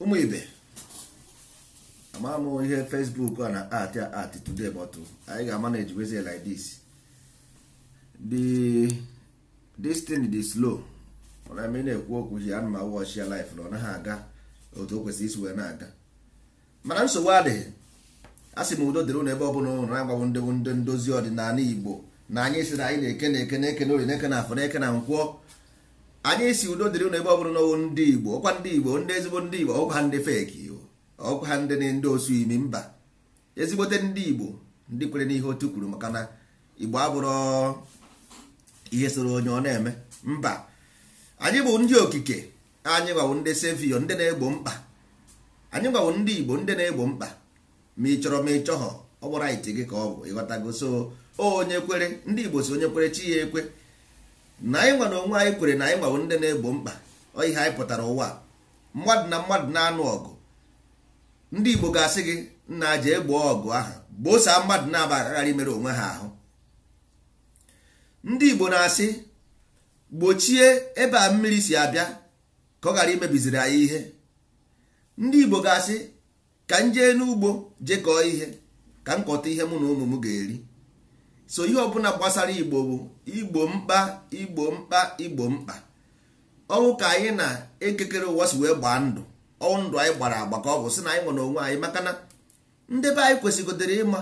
ụmụ ibe ama m ihe facebook a na art a art today but anyị ga-ama na ejibezi like this the slow mana m na-ekwu okwu hi ana ma ọchị ya life na ọ naghị aga otu o kwesịrị isi wee na-aga mana nsogbu adịghị a sị m udo dịrị n'ebe ọ bụla ụlọ na-agbagbụ ndị ndị ndozi ọdịnala igbo na anyị si na anyị na-eke na-eke na-eke na na-eke na afọ na-eke na nkwọ anyị si udo dịrị ụlọ ebe ọ bụrụ n'ọwụ ndị igbo ọkwa ndị igbo ndị ezigbo ndị igbo ọkwa ndị feki ọkwa ha ndị ndị osu imi mba ezigbote ndị igbo ndị kwere n'ihe otu kwuru maka na igbo abụrụ ihe soro onye ọ na-eme mba anyị bụ ndị okike anyị gbawo ndị sevio ndị na-egbo mkpa anyị gbawo ndị igbo ndị na-egbo mkpa ma ị chọrọ ma ị chọghọ ọ gbara ite gị ka ọ bụ ịghọtago so onye kwere ndị igbo si onye kwere chi ya ekwe na anyị nwa na onwe anyị kwere na anyị nwawo ndị na-egbo mkpa ọ ihe anyị pụtara ụwa mmadụ na mmadụ na-anụ ọgụ ndị Igbo ga-asị gị nna aja egbo ọgụ aha gbosaa mmadụ na-aba aghara imere onwe ha ahụ ndị Igbo na-asị gbochie ebe a mmiri si abịa ka ọ ghara imebiziri anyị ihe ndị Igbo ga-asị ka m jee n'ugbo jekọọ ihe ka m kọta ihe mụ na ụmụ m ga-eri so ihe ọbụla gbasara igbo bụ igbo mkpa igbo mkpa igbo mkpa ọnwụ ka anyị na-ekekere ụwa si wee gbaa ndụ ọnwụ ndụ anyị gbara agba ka ọ bụ sị na anyị nwere onwe anyị maka na ndị be anyị kwesịgodere ịma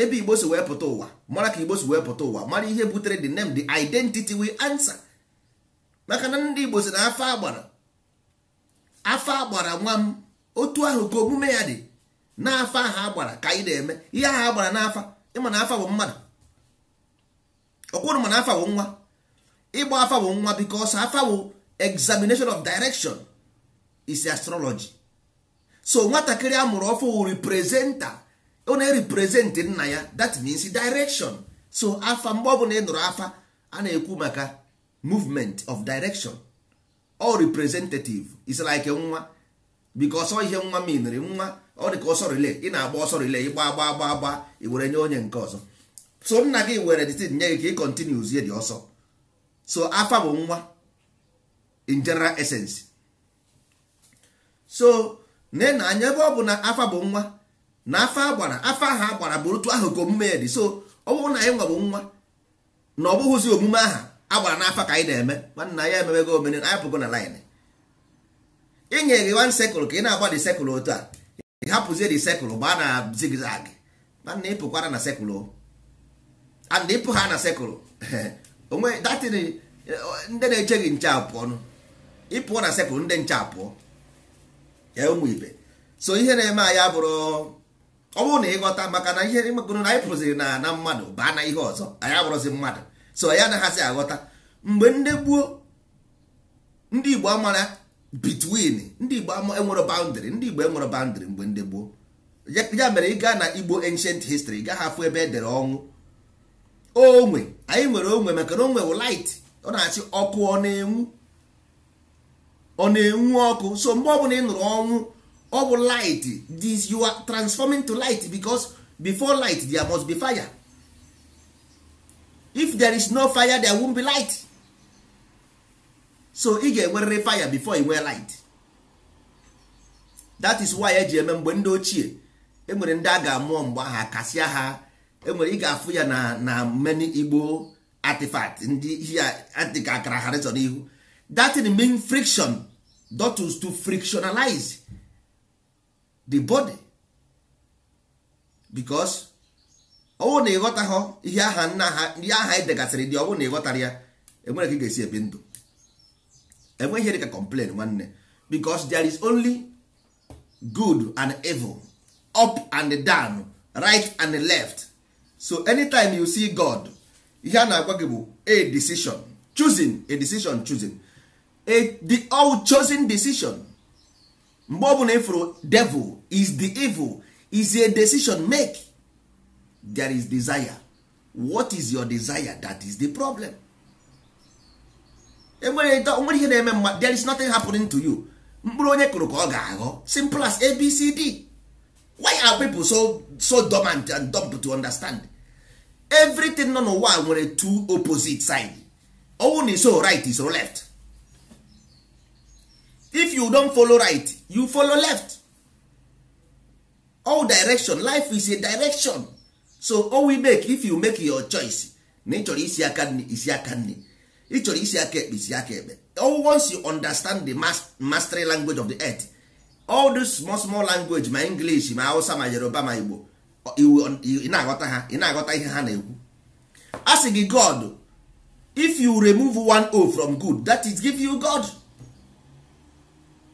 ebe igbo si wee pụta ụwa mara ka igbo si wee pụta ụwa mara ihe butere the name the identity we answer maka na ndị igbo si na afọ agbara afọ agbara nwa m otu ahụ ka omume ya dị n'afọ ahụ agbara ka anyị na-eme ihe ahụ agbara n'afa ịma na afa bụ mmadụ ọkwụrụ mana wụ nwa ịgba wụ nwa afa wụ examination of direction is astrology so nwatakịrị amụrụ ọfụ representa ọ na ereprezentị nna ya that means direction so afa mgbe ọbụla ị nụrụ afa a na-ekwu maka movement of direction all representative is like nwa because ọ ihe nwa miniri nwa ọ dị ka ọsọ rile ị na-agba ọsọ rile ịgba gba gba agba i were nye onye nke ọzọ so nna gị were detin nye gị ka ị kontinu zie dị ọsọ so afa bụ nwa in general essence so na na anya ebe ọ bụ na afa bụ nwa na afa agbara afa ahụ agbara bụ otu ahụ ka omume ya dị so ọ bụrụ na anyị nwa bụ nwa na ọ bụghịzi omume aha agbara n'afa ka anyị na-eme mana ya ememego omene anyị pụgo na lin inye gị wan sekụl ka ị na-agba dị sekụl otu a ị hapụzie dị sekụl gbaa na zigzag ị pụkwara na sekụl and ịpụ ha na sekụl onwe datin ndị na-eche gị nche apụọ nụ ịpụọ na sekụl ndị nche apụọ ya ụmụ ibe so ihe na-eme anyị bụrụ ọ bụrụ na ịghọta maka na ihe mekpụrụ na anyị pụrụziri na na mmadụ baa na ihe ọzọ anyị abụrụzi mmadụ so ya anaghịzi aghọta mgbe ndị gbuo ndị igbo amara between ndị igbo enwere boundary ndị igbo enwere boundary mgbe ndị gboo ya mere ị gaa na igbo ancient history ị gaghị afụ ebe edere ọnwụ onwe anyị nwere onwe maka na onwe wụ light ọ na achị ọkụ ọ na-enwu ọ na-enwu ọkụ so mgbe ọbụla ị nụrụ ọnwụ ọ bụ light this you are transforming to light because before light there must be fire if there is no fire there won't be light so ị ga-enwerịrị fire before ị nwee light that is why eji eme mgbe ndị ochie enwere ndị a ga-amụọ mgbe aha kasịa ha enwere ị ga-afụ ya na na many igbo artifact ndị ya adịka akara harịsọ n'ihu that is the main friction dotus to frictionalize the body because ọwụ na ha ihe aha nna ha ihe aha anyị e degasịrị dị ọwụ na ịghọtara ya enwere ka ị ga-esi ebi ndụ enweghị ihe dịka complain nwanne because there is only good and evil up and down right and left so anytime you see god ihe a na-agwa gị bụ a decision choosing a decision choosing a the all chosen decision mgbe ọ bụla ịfụrụ devil is the evil is a decision make there is desire what is your desire that is the problem enwere nwere ihe na-eme mma there is nothing happening to you mkpụrụ onye kụrụ ka ọ ga-aghọ simple as abcd why are people so so dormant and dumb to understand everything nọ n'ụwa nwere two opposite side ọwụ na iso right iso left if you don follow right you follow left all direction life is a direction so all we make if you make your choice na ị chọrọ isi aka nri isi aka nri ị chọrọ isi aka ekpe isi aka ekpe all once you understand the mastery language of the earth all this small small language ma english ma hausa ma yoruba ma igbo iwu na-aghọta ha ị na-aghọta ihe ha na-ekwu a sị gị god if you remove one o from good that is give you god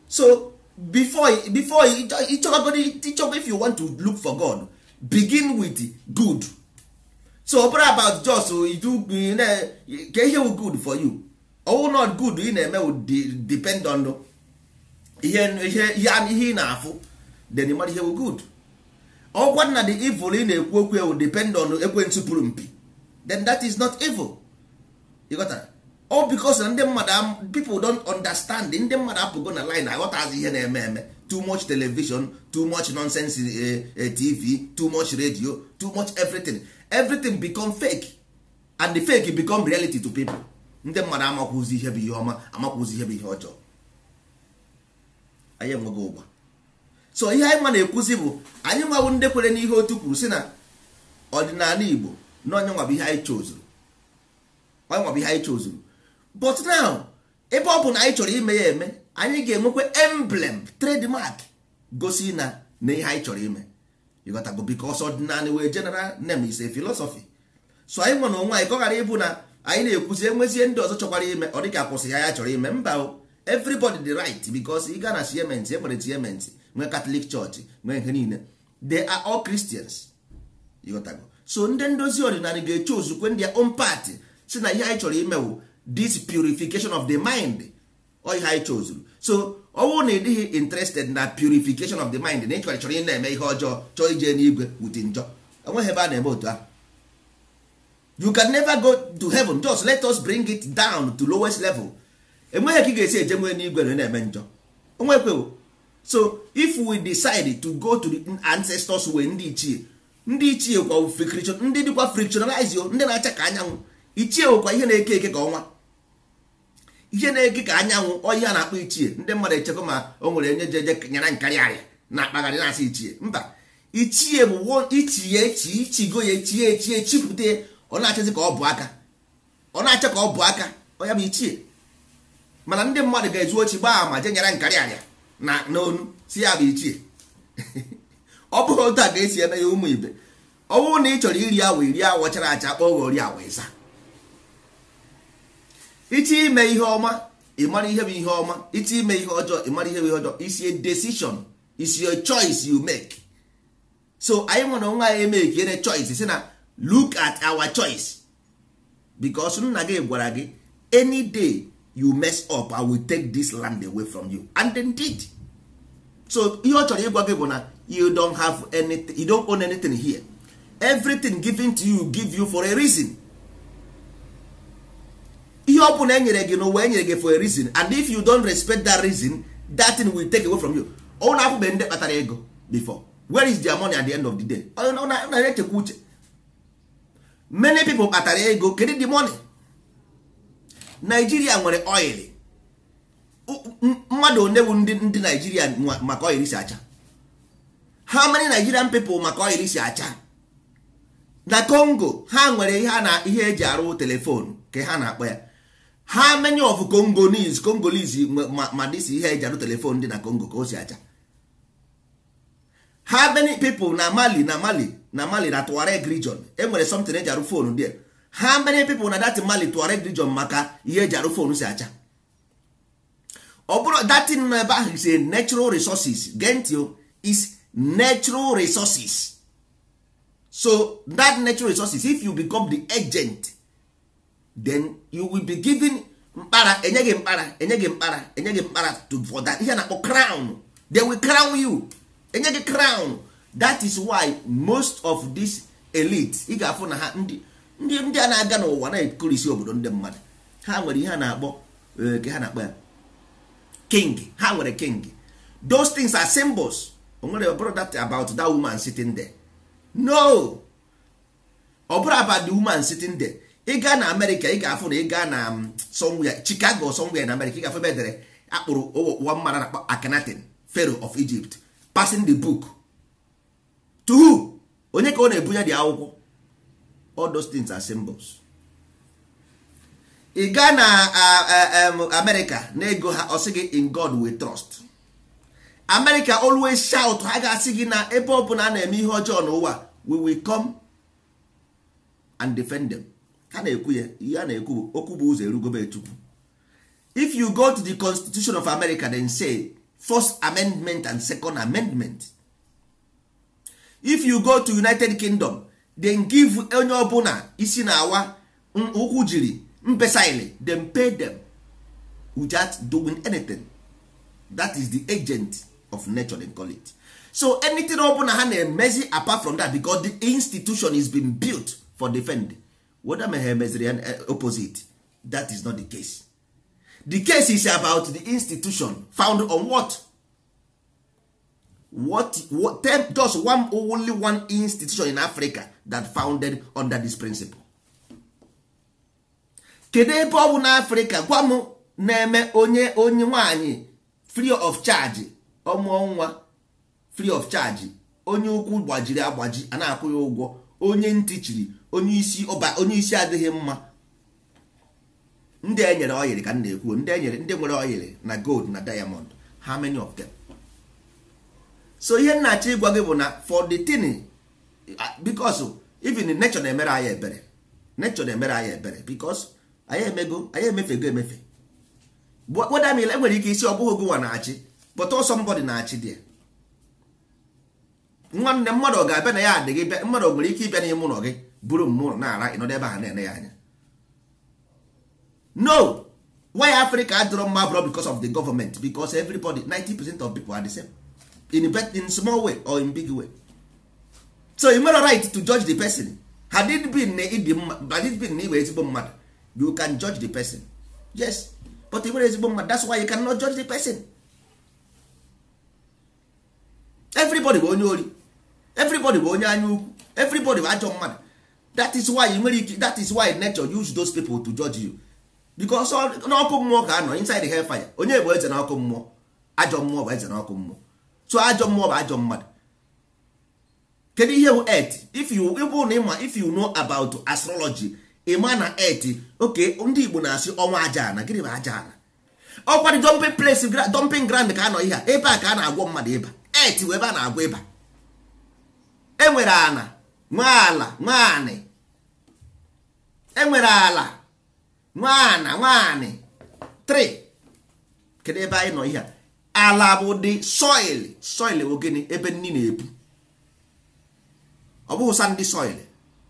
so before before if you want to look for god begin with good so obere about just oh, do ka ihe wu good for you owu not good ị na-eme depend on ihe ihe ị na-afụ then mara ihe wu good ọgwa na the evil ị na-ekwu okwu ewu depend on ekwentị pụrụ mpi then that is not evil ịghọtara ọ because na ndị mmadụ people don't understand ndị mmadụ apụgo na line aghọtazi ihe na-eme eme too much television too much nonsense eh, eh, tv too much radio too much everything everything become fake and the fake become reality to people ndị mmadụ amakwụzi ihe bụ ihe ọma amakwụzi ihe bụ ihe ọjọọ anyị enweghị ụgba so ihe anyị ma na-ekwuzi bụ anyị nwawo ndị kwere n'ihe otu kwuru si na ọdịnala Igbo na onye nwa bụ ihe anyị chozuru onye nwa ihe anyị chozuru but now ebe ọ bụ na anyị chọrọ ime ya eme anyị ga-enwekwa emblem trademark gosi na na ihe anyị chọrọ ime ịghọtago because ọdịnala wee jenara name is a so anyị nwa na onwe anyị ka ọ ghara ịbụ na anyị na-ekwuzi enwezie ndị ọzọ chọkwara ime ọ dịka akwụsị ya ya chọrọ ime mba o everybody the right because ị ga na siementi ekwere siementi nwee katọlik chọọchị nwee nke niile they are all Christians ịghọtago so ndị ndozi ọdịnala ga-eche ozukwe ndị own party si na ihe anyị chọrọ imewu this purification of the mind ọ ihe anyị chọzuru so ọ bụrụ na ị dịghị interested na purification of the mind na ịchọrọ chọrọ ị na-eme ihe ọjọọ chọọ ije n'igwe wute njọ enweghị ebe a na-eme otu ahụ you can never go to heaven just let us bring it down to lowest level enweghị ka ị ga-esi eje nwee n'igwe na na-eme njọ onwekwewo so if we decide to go to the ancestors way ndị ichie ndị ichie kwa friction ndị dịkwa frictionalize ndị na-acha ka anyanwụ ichie nwekwa ihe na-eke eke ka ọnwa ihe na-eke ka anyanwụ oyi a na-akpọ ichie ndị mmadụ echekwa ma o nwere onye jeje nyere nkarị arịa na akpagharị na-asị ichie mba ichie bụ ichie chi ichigo ya echie echie chipụta ọ na-achịzi ka ọ bụ aka ọ na-acha ka ọ bụ aka ọ ya bụ ichie mana ndị mmadụ ga-ezu ochi gbaa ma je nyere nkarị arịa na n'onu si ya bụ ichie ọ bụghị otu a ka esi eme ya ụmụ ibe ọ bụrụ na ị chọrọ iri awa iri awa chara acha kpọọ ghọrị awa ịza iche ime ihe ọma ịmara ihe bụ ihe ọma iche ime ihe ọjọọ ịmara ihe bụ ihe ọjọọ isi decision is your choice you make so anyị nwere nwa anyị eme ka ere choice si na look at our choice because nna gị gwara gị any day you mess up i will take this land away from you and indeed so ihe ọ chọrọ ịgwa gị bụ na you don't have anything you don't own anything here everything given to you give you for a reason ihe ọ bụla enyere gị n'ụwa enyere gị for a reason and if you don't respect that reason that thing will take away from you ọ na-apụbe ndị kpatara ego before where is their money at the end of the day ọ na-echekwa uche many people kpatara ego kedu the money naijiria nwere oil mmadụ onye bụ ndị naijiria maka oil si acha ha many nigerian people maka oil si acha na congo ha nwere ihe na ihe eji arụ telefonu ka ha na-akpọ ya ha many of congolese congolese ma dịsi ihe eji arụ telefonu dị na congo ka o si acha ha many people na mali na mali na mali na tuareg region enwere something eji arụ fonu dị how many people na that mali tuareg region maka ihe eji arụ fon si acha ọ bụrụ datin nọ ebe ahụ is a natural resources o is natural resources so that natural resources if you become the agent then you will be given mkpara enye gị mkpara enye gị mkpara enye gị mkpara to for that ihe na-akpọ crown they will crown you enye gị crown that is why most of this elite ị ga-afụ na ha ndị ndị ndị a na-aga n'ụwa na-ekorisi obodo ndị mmadụ ha nwere ihe a na-akpọ ke eh, ha na-akpọ ya king ha nwere king those things are symbols o nwere ọbụrụ that about that woman sitting there no ọ bụrụ about the woman sitting there ị gaa na amerịka ị ga-afụ na ị gaa na mm, somewhere chicago somewhere na amerịka ị ga-afụ ebe edere akpụrụ ụwa mmara na akhenaten pharaoh of egypt passing the book to who onye ka ọ na-ebunye dị akwụkwọ all those things are symbols ị gaa na amerịka na ego ha ọ gị in god we trust amerịka always shout ha ga-asị gị na ebe ọ bụla a na-eme ihe ọjọọ n'ụwa we will come and defend them ha na-ekwu ya ihe a na-ekwu bụ okwu bụ ụzọ erugobe chukwu if you go to the constitution of america then say first amendment and second amendment if you go to united kingdom dem give onye ọbụla isi na-awa ụkwụ jiri ile dem pay them without doing anything that is the agent of nature dem call it so anything ọbụla ha na-emezi apart from that becos the institution is bin built for defend whether ma ha emeziri eh, opposite that is not the case the case is about the institution found on what what, what tell just only one institution in africa that founded under this principle kedu ebe ọ bụ n'Africa gwa m na-eme onye onye nwanyị free of charge ọmụọ nwa free of charge onye ukwu gbajiri agbaji a na-akwụ ụgwọ onye ntị chiri onye isi ọba onye isi adịghị mma ndị enyere oyiri ka m na ndị enyere ndị nwere oyiri na gold na diamond how many of so ihe nnachi ịgwa gị bụ na for the thing because even nature na-emere anyị ebere nature na-emere anyị ebere because anyị emego anyị emefego emefe wedamila enwere ike isi ọ bụghị gụnwa na-achị kpọta ọsọ mbọdị na-achị dị nwanne mmadụ ga-abịa na ya adịghị bịa mmadụ nwere ike ịbịa n'ime ụlọ gị buru mmụọ na-ara ịnọdụ ebe ha na-ene ya anya no why africa adịrọ mma abụrọ because of the government because everybody 90 percent of people are the same. in, in small way or in big way so you nwere right to judge the person had it been na ịdị mma had it been na ịbụ ezigbo mmadụ you can judge the person yes but ị nwere ezigbo mmadụ that's why you cannot judge the person everybody bụ onye ori everybody bụ onye anya ukwu everybody bụ ajọ mmadụ that is why you nwere ike that is why nature use those people to judge you because n'ọkụ mmụọ ka anọ inside the fire onye bụ eze na ọkụ mmụọ ajọ mmụọ bụ eze na ọkụ mmụọ tụọ ajọ mmụọ bụ ajọ mmadụ kedu ihe bụ et if you ịbụ na ịma if you know about astrology ịma na et oke ndị Igbo na-asị ọnwa aja ana gịnị bụ aja ana ọ kwadị dumping place dumping ground ka anọ ihe a ebe a ka a na-agwọ mmadụ ịba et bụ ebe a na-agwọ ịba enwere ala nwaala nwaanị enwere ala nwaana nwaanị 3 kedu ebe anyị nọ ihe a ala bụ dị soil soil bụ gịnị ebe nni na ebu ọ bụghị soil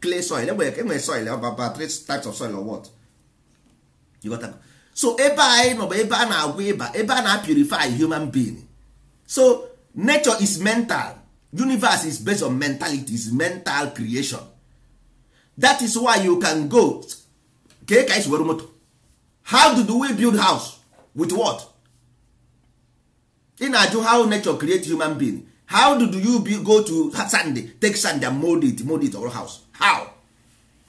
clay soil enwere soil about three types of soil or what so ebe anyị nọ bụ ebe a na ịba ebe a na-purify human being so nature is mental universe is based on mentality is mental creation that is why you can go ka ka esi were moto how do we build house with what? ị na-ajụ how nature create human being how did you be, go to Sunday take sand and mold it mold it or house how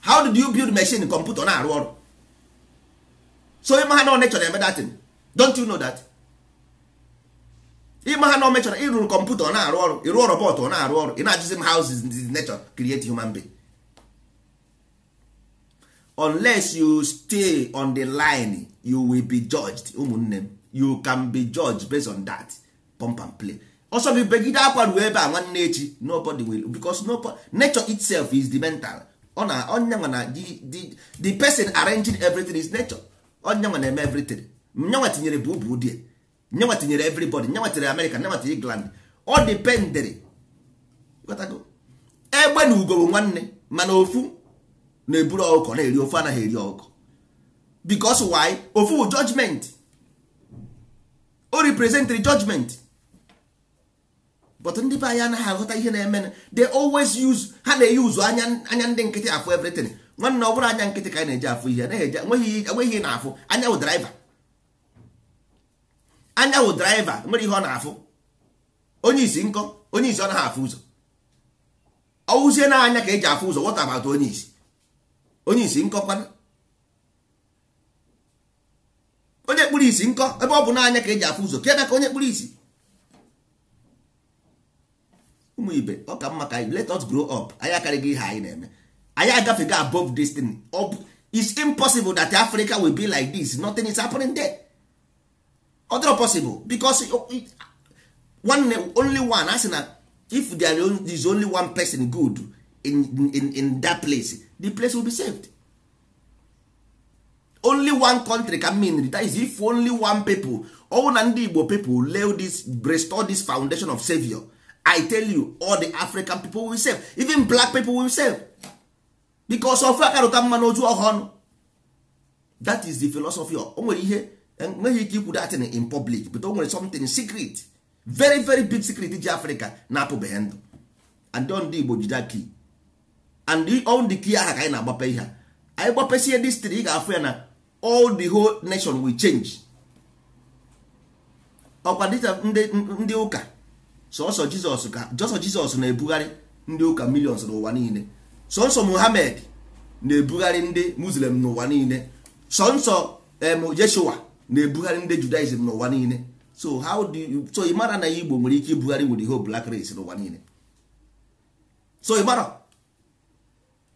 how did you build machine computer na-arụ ọrụ so ịma ha na nature na-eme datin don't you know that ịma ha na omechara ịrụrụ kọmputa ọ na-arụ ọrụ ịrụ robot ọ na-arụ ọrụ ị na-ajụzi m how is nature create human being unless you stay on the line you will be judged ụmụnne m you can be judge based on that pump and play ọsọ bụ begide akwa ruo ebe a nwanne echi nobody will because nobody, nature itself is the mental ọ na onyenwa na the person arranging everything is nature onyenwa na-eme everything nyenwa tinyere bụ ụbụ die nyenwa tinyere everybody nyenwa tinyere America nyenwa tinyere England ọ dependere egbe eh, na ugo nwanne mana ofu na-eburu ọkụkọ na-eri ofu anaghị eri ọkụkọ because why ofu judgment o represent the judgment but ndị be anyị anaghị aghọta ihe na-eme they always use ha na-eyuzu anya anya ndị nkịtị afụ everything nwanne ọ bụrụ anya nkịtị ka anyị na-eji afụ ihe enweghị ihe na-afụ anya wụ driver anya wụ driver nwere ihe ọ na-afụ onye isi nkọ onye isi ọ naghị afụ ụzọ ọwụzie na anya ka eji afụ ụzọ what about onye isi onye isi nkọ kwana onye kpụrụ isi nkọ ebe ọ bụ n'anya ka eji afụ ụzọ ka ebe ka onye kpụrụ isi ụmụ ibe ọ ka mma ka anyị let us grow up anyị akarịghị ihe anyị na-eme anyị agafego above this thing it's impossible that Africa will be like this nothing is happening there Other possible because one only one asị na if there is only one person good in, in, in that place the place will be saved only one country can mean that is if only one people ọwụ na ndị igbo people lay this restore this foundation of savior i tell you all the african people will save even black people will save because of akarụta mma n'oju ọhụrụ that is the philosophy o nwere ihe eh, nweghị ike ikwu datin in public but o nwere something secret very very big secret ji africa na-apụbeghị ndụ and ndị igbo jide key and all the key aha ka anyị na-agbape ihe anyị gbapesie distri ị ga-afụ ya na all the whole nation will change ọkwa dịta ndị ụka sọsọ jizọs ka jọsọ jizọs na-ebugharị ndị ụka millions n'ụwa niile sọnsọ muhammad na-ebugharị ndị muslim n'ụwa niile sọnsọ yeshua na-ebugharị ndị judaism n'ụwa niile so how do you so ịmara na igbo nwere ike ibugharị with the whole black race n'ụwa niile so ịmara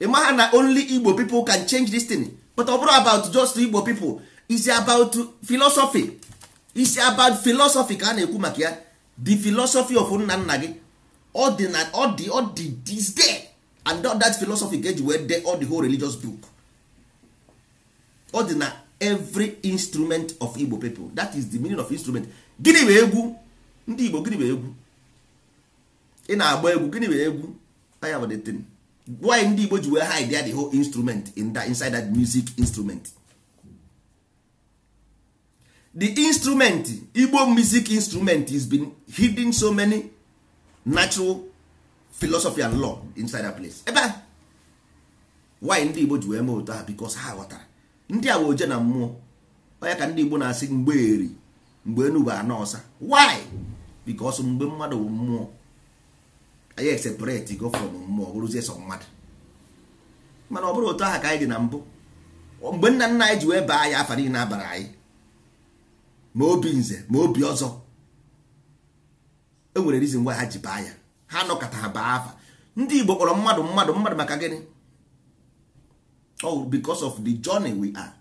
ịmara na only igbo people can change this thing but ọ bụrụ about just Igbo people is about philosophy is about philosophy ka a na-ekwu maka ya the philosophy of nna nna gị ọ dị na ọ dị ọ dị this day and that philosophy ga-eji wee dee all the whole religious book ọ dị na every instrument of Igbo people that is the meaning of instrument gịnị bụ egwu ndị Igbo gịnị bụ egwu ị na-agba egwu gịnị bụ egwu anya the thing why ndị igbo ji wee hide the whole instrument in that, inside that music instrument the instrument igbo music instrument is been hidden so many natural philosophy and law inside that place ebe why ndị igbo ji wee mee otu ha because ha ghọtara ndị a oje na mmụọ onye ka ndị igbo na-asị mgbe eri mgbe enugbe anọ ọsa why because mgbe mmadụ mmụọ anyị eseparate go from mmụọ bụrụzie sọ mmadụ mana ọ bụrụ otu aha ka anyị dị na mbụ mgbe nna nna anyị ji wee baa anyị afa niile abara anyị ma obi nze ma obi ọzọ e nwere rizin ngwa ha ji baa ya ha nọkọta ha baa afa ndị Igbo kpọrọ mmadụ mmadụ mmadụ maka gịnị oh because of the journey we are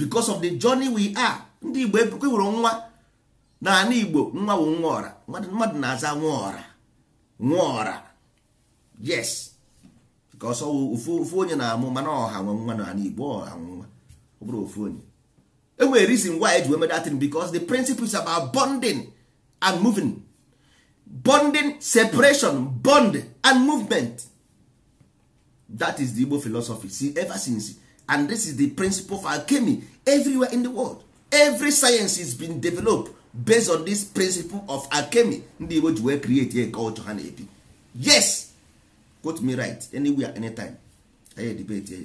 because of the journey we are ndị Igbo ebukwe nwere nwa na ana Igbo nwa bụ nwa ọra mmadụ na-aza nwa ọra Nwụọra. yes ka ọsọ ofu onye na-amụ mana ọha nwe nwa na igbo ọha nwe nwa ọ bụrụ ofu onye enwere reason why eji eme datin Becos the principles is about bonding and moving bonding separation bond and movement that is the igbo philosophy see ever since and this is the principle for alchemy everywhere in the world every science is been developed based on this principle of alchemy ndị igbo ji wee create a culture ha na-ebi yes quote me right anywhere anytime anyị edebete ya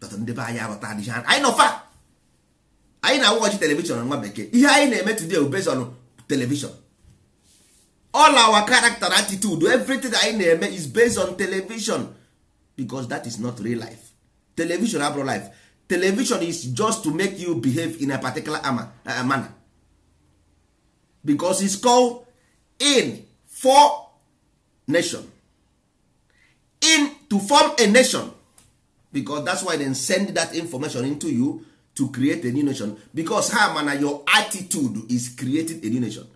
but ndị be anyị aghọta adịghị anyị nọfa anyị na-awụghachi telivishọn nwa bekee ihe anyị na-eme today based on television all our character attitude everything anyị na-eme is based on television because that is not real life television abụrụ life television is just to make you behave in a particular uh, manner because it's called in for nation in to form a nation because that's why they send that information into you to create a new nation because ha mana your attitude is creating a new nation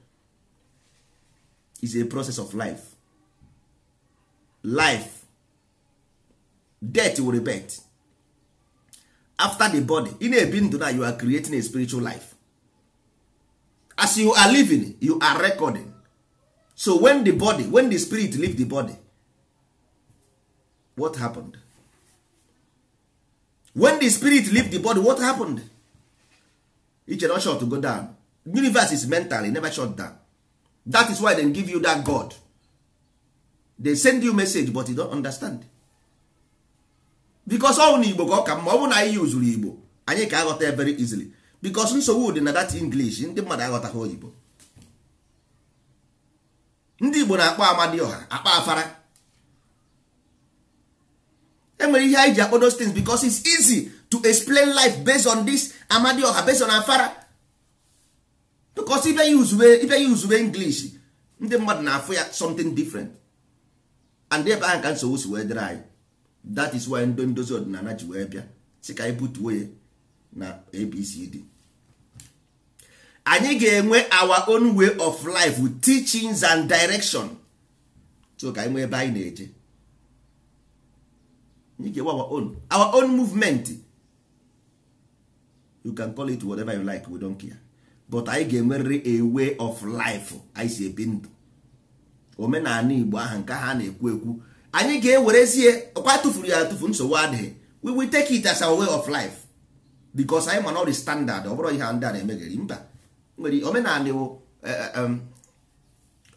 is a process of life life death will repent. after the body ị na-ebi ndụ na you are creating a spiritual life as you are living you are recording so when the body when the spirit leave the body what happened when the spirit leave the body what happened each and shut to go down universe is mental e never shut down that is why they give you that god they send you message but you don't understand bikos ọnwụ na igbo ka ọ ka mma ọ bụrụ na anyị yuzuru igbo anyị ka aghọta very easily bikos nsogbu dị na that english ndị mmadụ aghọtaghị oyibo ndị igbo na-akpọ amadioha akpa afara enwere ihe anyị ji akpọ those things because it's easy to explain life based on this ọha based on afara because ibe ya uzube ibe english ndị mmadụ na-afụ ya something different and ebe ahụ ka nsogbu si wee dịrị anyị that is why ndị ndozi ọdịnala ji wee bịa si ka anyị butuo ya na abcd anyị ga-enwe our own way of life teachings and direction so ka anyị nwee ebe anyị na-eje anyị ga-enwe our own our own movement you can call it whatever you like we don't care but anyị ga-enwerịrị a way of life anyị si ebi ndụ omenala Igbo ahụ nke ha na-ekwu ekwu anyị ga-ewerezie ọkwa tụfuru ya atụfu nsogbu adịghị we will take it as our way of life because anyị mana ọ standard ọ bụrụ ihe ndị a na-emegeri mba nwere omenala eh, eh, um,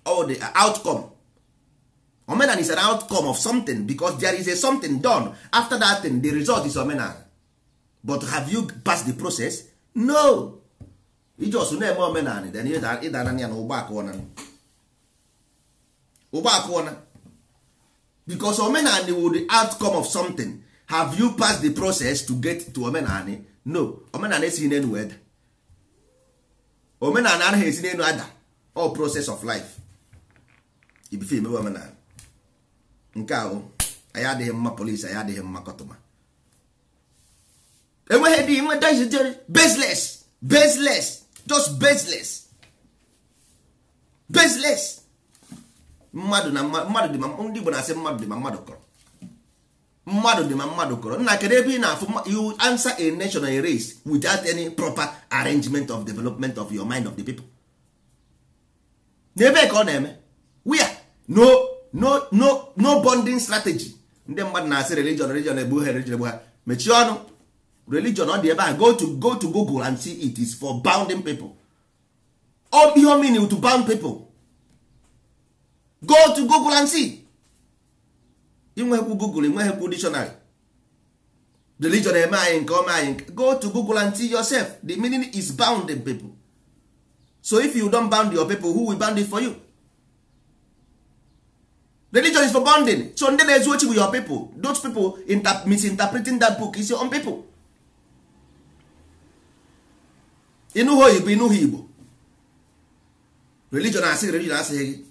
ọ dị uh, outcome omenala is an outcome of something because there is a something done after that thing the result is omenala but have you passed the process no iji na-eme omenala ịdana ya na ụgbọ akụọna ụgbọ akụọna because omenani will the outcome of something have you passed the process to get to omenani no omenani esighị n'enu weda omenani anaghị esi n'enu ada all process of life ibife emewe omenani nke ahụ anyị adịghị mma polisi anyị adịghị mma kọtụma enweghị dị nwe dajijere baseless baseless just baseless baseless mmadụ na mmadụ dị ma ndị Igbo na-asị mmadụ dị ma mmadụ kọrọ mmadụ dị ma mmadụ kọrọ nna kedu ebe ị na-afụ you answer a national race without any proper arrangement of development of your mind of the people n'ebe ka ọ na-eme wia no no no no bonding strategy ndị mmadụ na-asị religion religion egbu ha religion egbu ha mechie ọnụ religion ọ dị ebe a go to go to Google and see it is for bounding people ọ ihe omini to bound people go to google and see inwekwu google inweghekwu dictionary religion eme anyị nke ọma anyị go to google and see yourself the meaning is bound in people so if you don't bound your people who will bound it for you religion is for bounding so ndị na-ezu ochi bụ your people those people misinterpreting that book is your own people ịnụghị oyibo igbo religion asịghị religion asịghị gị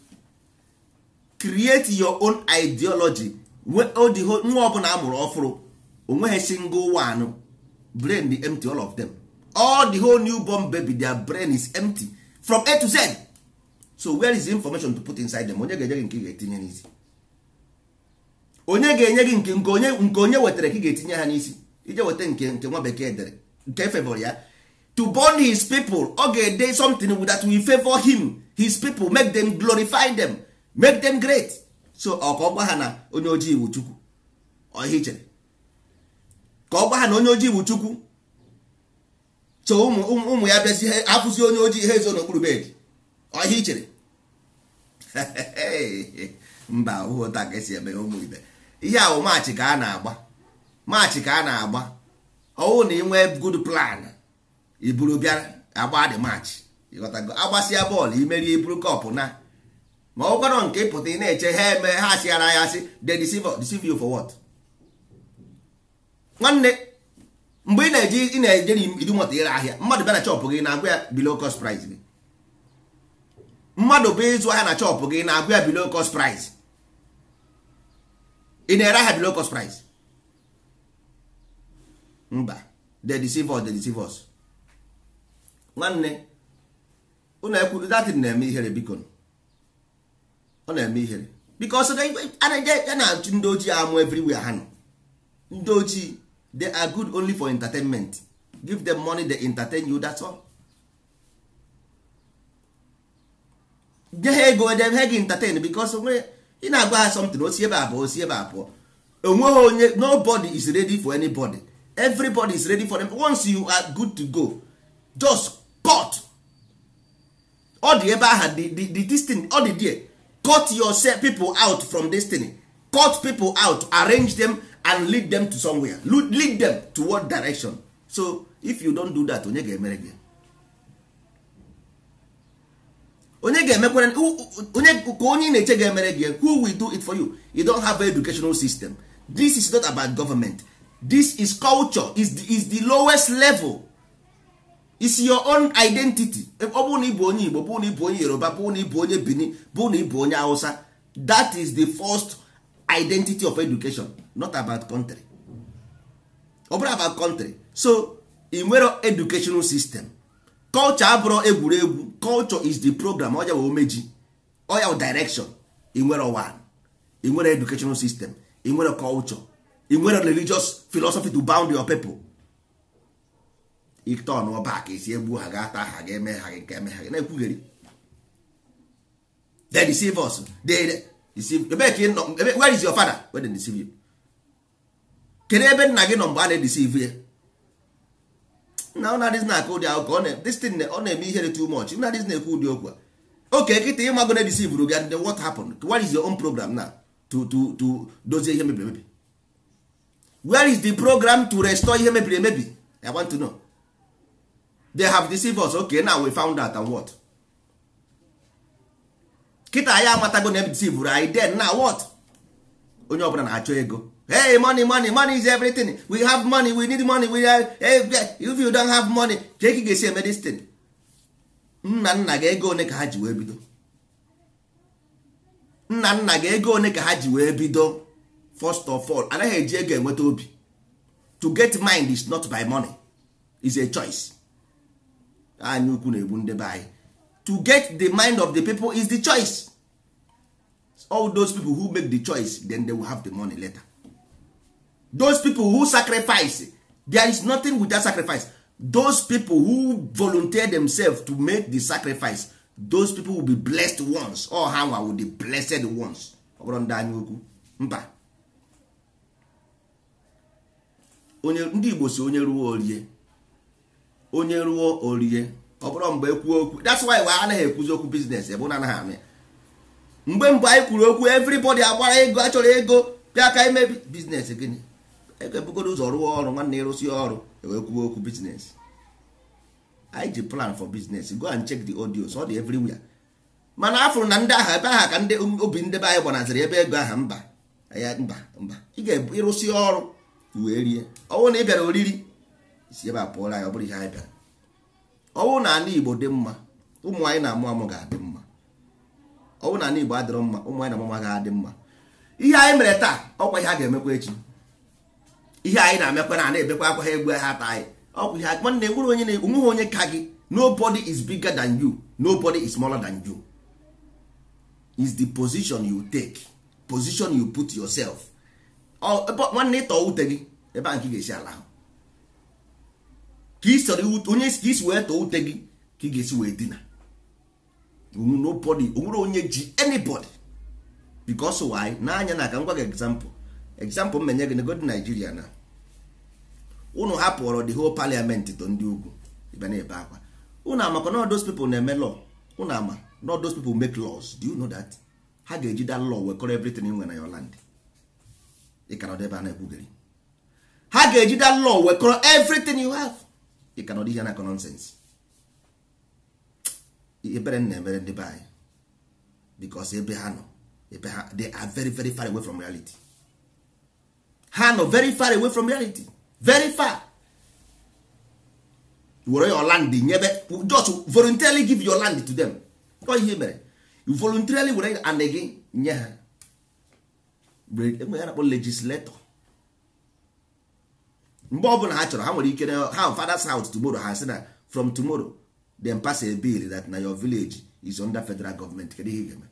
create your own ideology nwa ọbụla a mụrụ ọfụrụ onweghị single one brain be empty all of them all the whole newborn baby their brain is empty from A to Z so where is the information to put inside them onye ga-enye gị nke ị ga-etinye n'isi onye ga-enye gị nke onye nke onye wetara ka ị ga-etinye ha n'isi ije weta nke nke nwa bekee dere nke e favor ya to born his people ọ ga-ede something that will favor him his people make them glorify them make them great so ọ ka ọ gwa ha na onye ojii iwu chukwu ọhịa ichere ka ọ gwa ha na onye ojii iwu chukwu so ụmụ ya bịazi afụzi onye ojii ha ezo n'okpuru bed ọhịa ichere mba ụta ka esi eme ụmụ ibe ihe awụ maachị ka a na-agba maachị ka a na-agba ọwụ na ị nwee plan iburu bịara agba dị maachị ịghọtago agbasịa bọọlụ imerie iburu kọpụ na ma ọ kwarọ nke ịpụta ị na-eche ha eme ha asịara ya asị they deceive you for what nwanne mgbe ị na-eji ị na eje idu nwata ire ahịa mmadụ bịa na chọpụ gị na agụ ya below cost price gị mmadụ bịa ịzụ ahịa na chọpụ gị na agụ ya below cost price ị na-ere ahịa below cost price mba they deceive us they deceive us nwanne ụlọ ekwu datin na-eme ihere biko ọ na-eme ihere because a ya na ndị ojii amụ everywhere ha nọ ndị ojii they are good only for entertainment give them money they entertain you that's all. nye ha ego edem ha gị entertain because onwe ị na-agwa ha something osi ebe a pụọ osi ebe a pụọ onweghị onye nobody is ready for anybody everybody is ready for them once you are good to go just cut ọ dị ebe aha the the the this thing ọ dị there cut yourself people out from destiny cut people out arrange them and lead them to somewhere lead them toward direction so if you don't do that onye ga-emere gị onye ga-emekwere onye ka onye na-eche ga-emere gị who will do it for you you don't have an educational system this is not about government this is culture is the, is the lowest level is your own identity ọ bụ na ịbụ onye Igbo bụ na ịbụ onye Yoruba bụrụ na ịbụ onye Benin bụ na ịbụ onye Hausa that is the first identity of education not about country ọ bụrụ about country so ị nwere educational system culture abụrụ egwuregwu culture is the program ọya omeji Oya direction ị nwere one ị nwere educational system ị nwere culture ị religious philosophy to bound your people ite ọnụọba ka esi egbu ha ga-ata ha ga-eme ha gị nke eme ha gị na-ekwugheri they deceive us they deceive ebe ka ị nọ is your father where they deceive you kedu ebe nna gị nọ mgbe a na-edeceive ya na ụnadịz na-akụ ụdị akụkọ destin ọ na-eme ihere too much ụnadịz na-ekwu ụdị okwu a oke kịta ịmago na edisivuru gị ndị what happened what is your own program na to to to dozie ihe mebiri emebi where is the program to restore ihe mebiri emebi i want to know they have deceived us okay now we found out and what kịta ya amatago na deceived anyị then now what onye ọbụla na-achọ ego hey money money money is everything we have money we need money we are, hey, if you don't have money ka ga-esi eme this nna nna gị ego one ka ha ji wee bido nna nna gị ego one ka ha ji wee bido first of all anaghị eji ego enweta obi to get mind is not by money is a choice anyị ukwu na-egbu ndị be anyị to get the mind of the people is the choice all those people who make the choice then they will have the money later those people who sacrifice there is nothing without sacrifice those people who volunteer themselves to make the sacrifice those people will be blessed ones All ha nwa will be blessed ones ọ bụrụ ndị anyị okwu mba onye ndị Igbo si onye ruo orie onye ruo orie ọ bụrụ mgbe ekwuo okwu that's why anaghị ekwuzi okwu biznes ebe na anaghị amị mgbe mgbe anyị kwuru okwu everybody agbara ego achọrọ ego bịa ka imebi biznes gịnị ebugodo ụzọ rụọ ọrụ nwanne ịrụsi ọrụ e wee kwuo okwu biznes anyị ji plan for business go and check the audio ọ dị everywhere mana afụrụ na ndị agha ebe aha ka ndị um, obi ndebe anyị gbanaziri ebe ego aha mba mba mba ị ga-ịrụsi ọrụ wee rie ọnwụ na ị bịara oriri si ebe a pụọla anyị ọ bụrụ ihe anyị bịara ọ bụrụ na ala igbo dị mma ụmụ anyị na-amụ amụ ga-adị mma ọ bụrụ na ala igbo adịrọ mma ụmụ anyị na amụ amụ ga-adị mma ihe anyị mere taa ọkwa ihe a ga-emekwa echi ihe anyị na-emekwa na na-ebekwa akwa ha egbu ha taa anyị ọkwa ihe nwanne e nwere onye na-enweghị onye ka gị nobody is bigger than you nobody is smaller than you is the position you take position you put yourself nwanne ịtọ ute gị ebe a nke ga-esi ala ahụ ka ị sọrọ onye ka isi wee too ute gị ka ị ga-esi wee dina nobody onwere onye ji anybody because why n'anya na aga ngwa gị example example m menye gị nego dị na unu the whole parliament ndị ugwu na-ebe akwa na those na-eme ama na those ha ga nwe na a na-ekwugeri ha ga-eji wekọrọ ị ka na ọ na nọnsensị ebere m na-emere ndị e. e be anyị e because ebe ha nọ ebe ha they are very very far away from reality ha nọ very far away from reality very far were your land nyebe just voluntarily give your land to them ọ ihe mere you voluntarily were and gị nye ha enwe ya na-akpọ legislator mgbe bụla ha chọrọ ha nwere ike ha fathers house tomorrow ha sị na from tomorrow dem pass a bill that na your village is under federal government kedu ihe ị ga-eme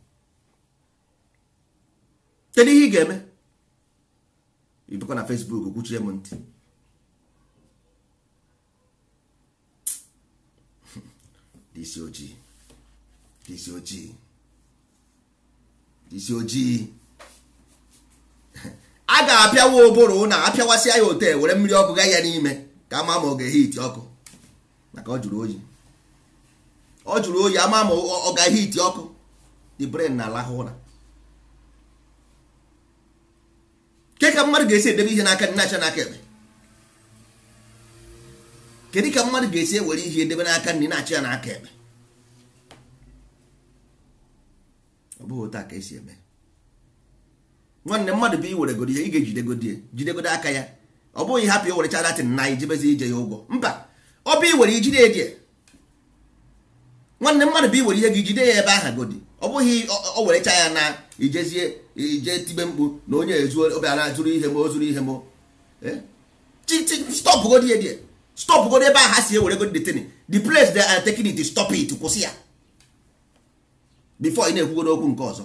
kedu ihe ị ga-eme na facebook kwuchie m ntị disi ojii disi ojii disi ojii a ga-apịawa ụbụrụ na apịawasị ya ote were mmiri ọkụ gaa ya n'ime ka ama ma ọ ga-ehiti ọkụ maka ọ jụrụ oyi ọ jụrụ oyi ama ma ọ ga-ehiti ọkụ the brain na-alahụ ụra ke ka mmadụ ga-esi edebe ihe n'aka nnacha n'aka ekpe kedu ka mmadụ ga-esi ewere ihe edebe n'aka nri na-achị ya n'aka ekpe ọ bụghị otu a ka esi eme nwanne mmadụ bụ iweregodi ya ị ga-ejidegodi ya jidegodi aka ya ọ bụghị hapụ i werecha latin na ijebezi ije ya ụgwọ mba ọ bụ iwere ijide eji nwanne mmadụ bụ iwere ihe gị jide ya ebe aha godi ọ bụghị o werecha ya na ijezie ije tibe mkpu na onye ezuo obiara zuru ihe m o zuru ihe m eh? stop godi ya die stop godi ebe aha si ewere godi detin the place they are taking it stop it kwụsị ya before ị na-ekwugo n'okwu nke ọzọ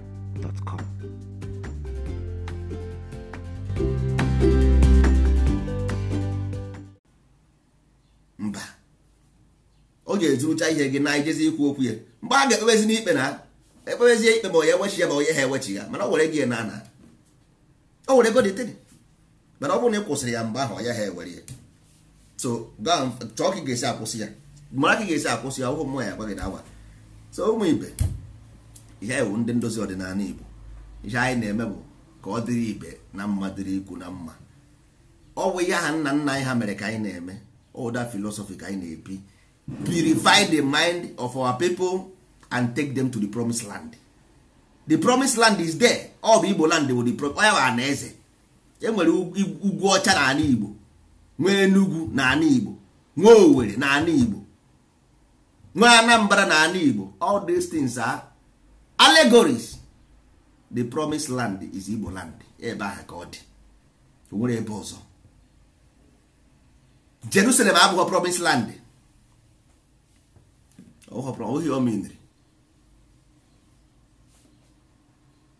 mba ọ ga-ezurucha ihe gị na ijezi ikwu okwu ya mgbe a ga-ekpebezi n'ikpe na ekpebezie ikpe ma onye ewechi ya ma onye ha ewechi ya mana o were gị na ana o were ego dịtịrị mana ọ bụrụ na ị kwụsịrị ya mgbe ahụ ya ha ewere ya so chọọ ka ị ga-esi akwụsị ya mara ka ị ga-esi akwụsị ya ọhụ mmụọ ya agba gị na awa so ụmụ ibe ihe anyị wụ ndị ndozi ọdịnala Igbo ihe anyị na-eme bụ ka ọ dịrị ibe na mma dịrị ikwu na mma ọ bụ ya ha nna nna anyị ha mere ka anyị na-eme oda filosofi ka anyị na-ebi purify the mind of our people and take them to the promised land the promised land is there ọ bụ Igbo land wụ the promised ya bụ ana eze enwere ugwu ọcha na ala Igbo nwee Enugu na ala Igbo nwee Owerri na ala Igbo nwee Anambra na ala Igbo all these things are allegories the promised land is igbo land ebe ahụ ka ọ dị nwere ebe ọzọ jerusalem abụghị promised land ohi omenri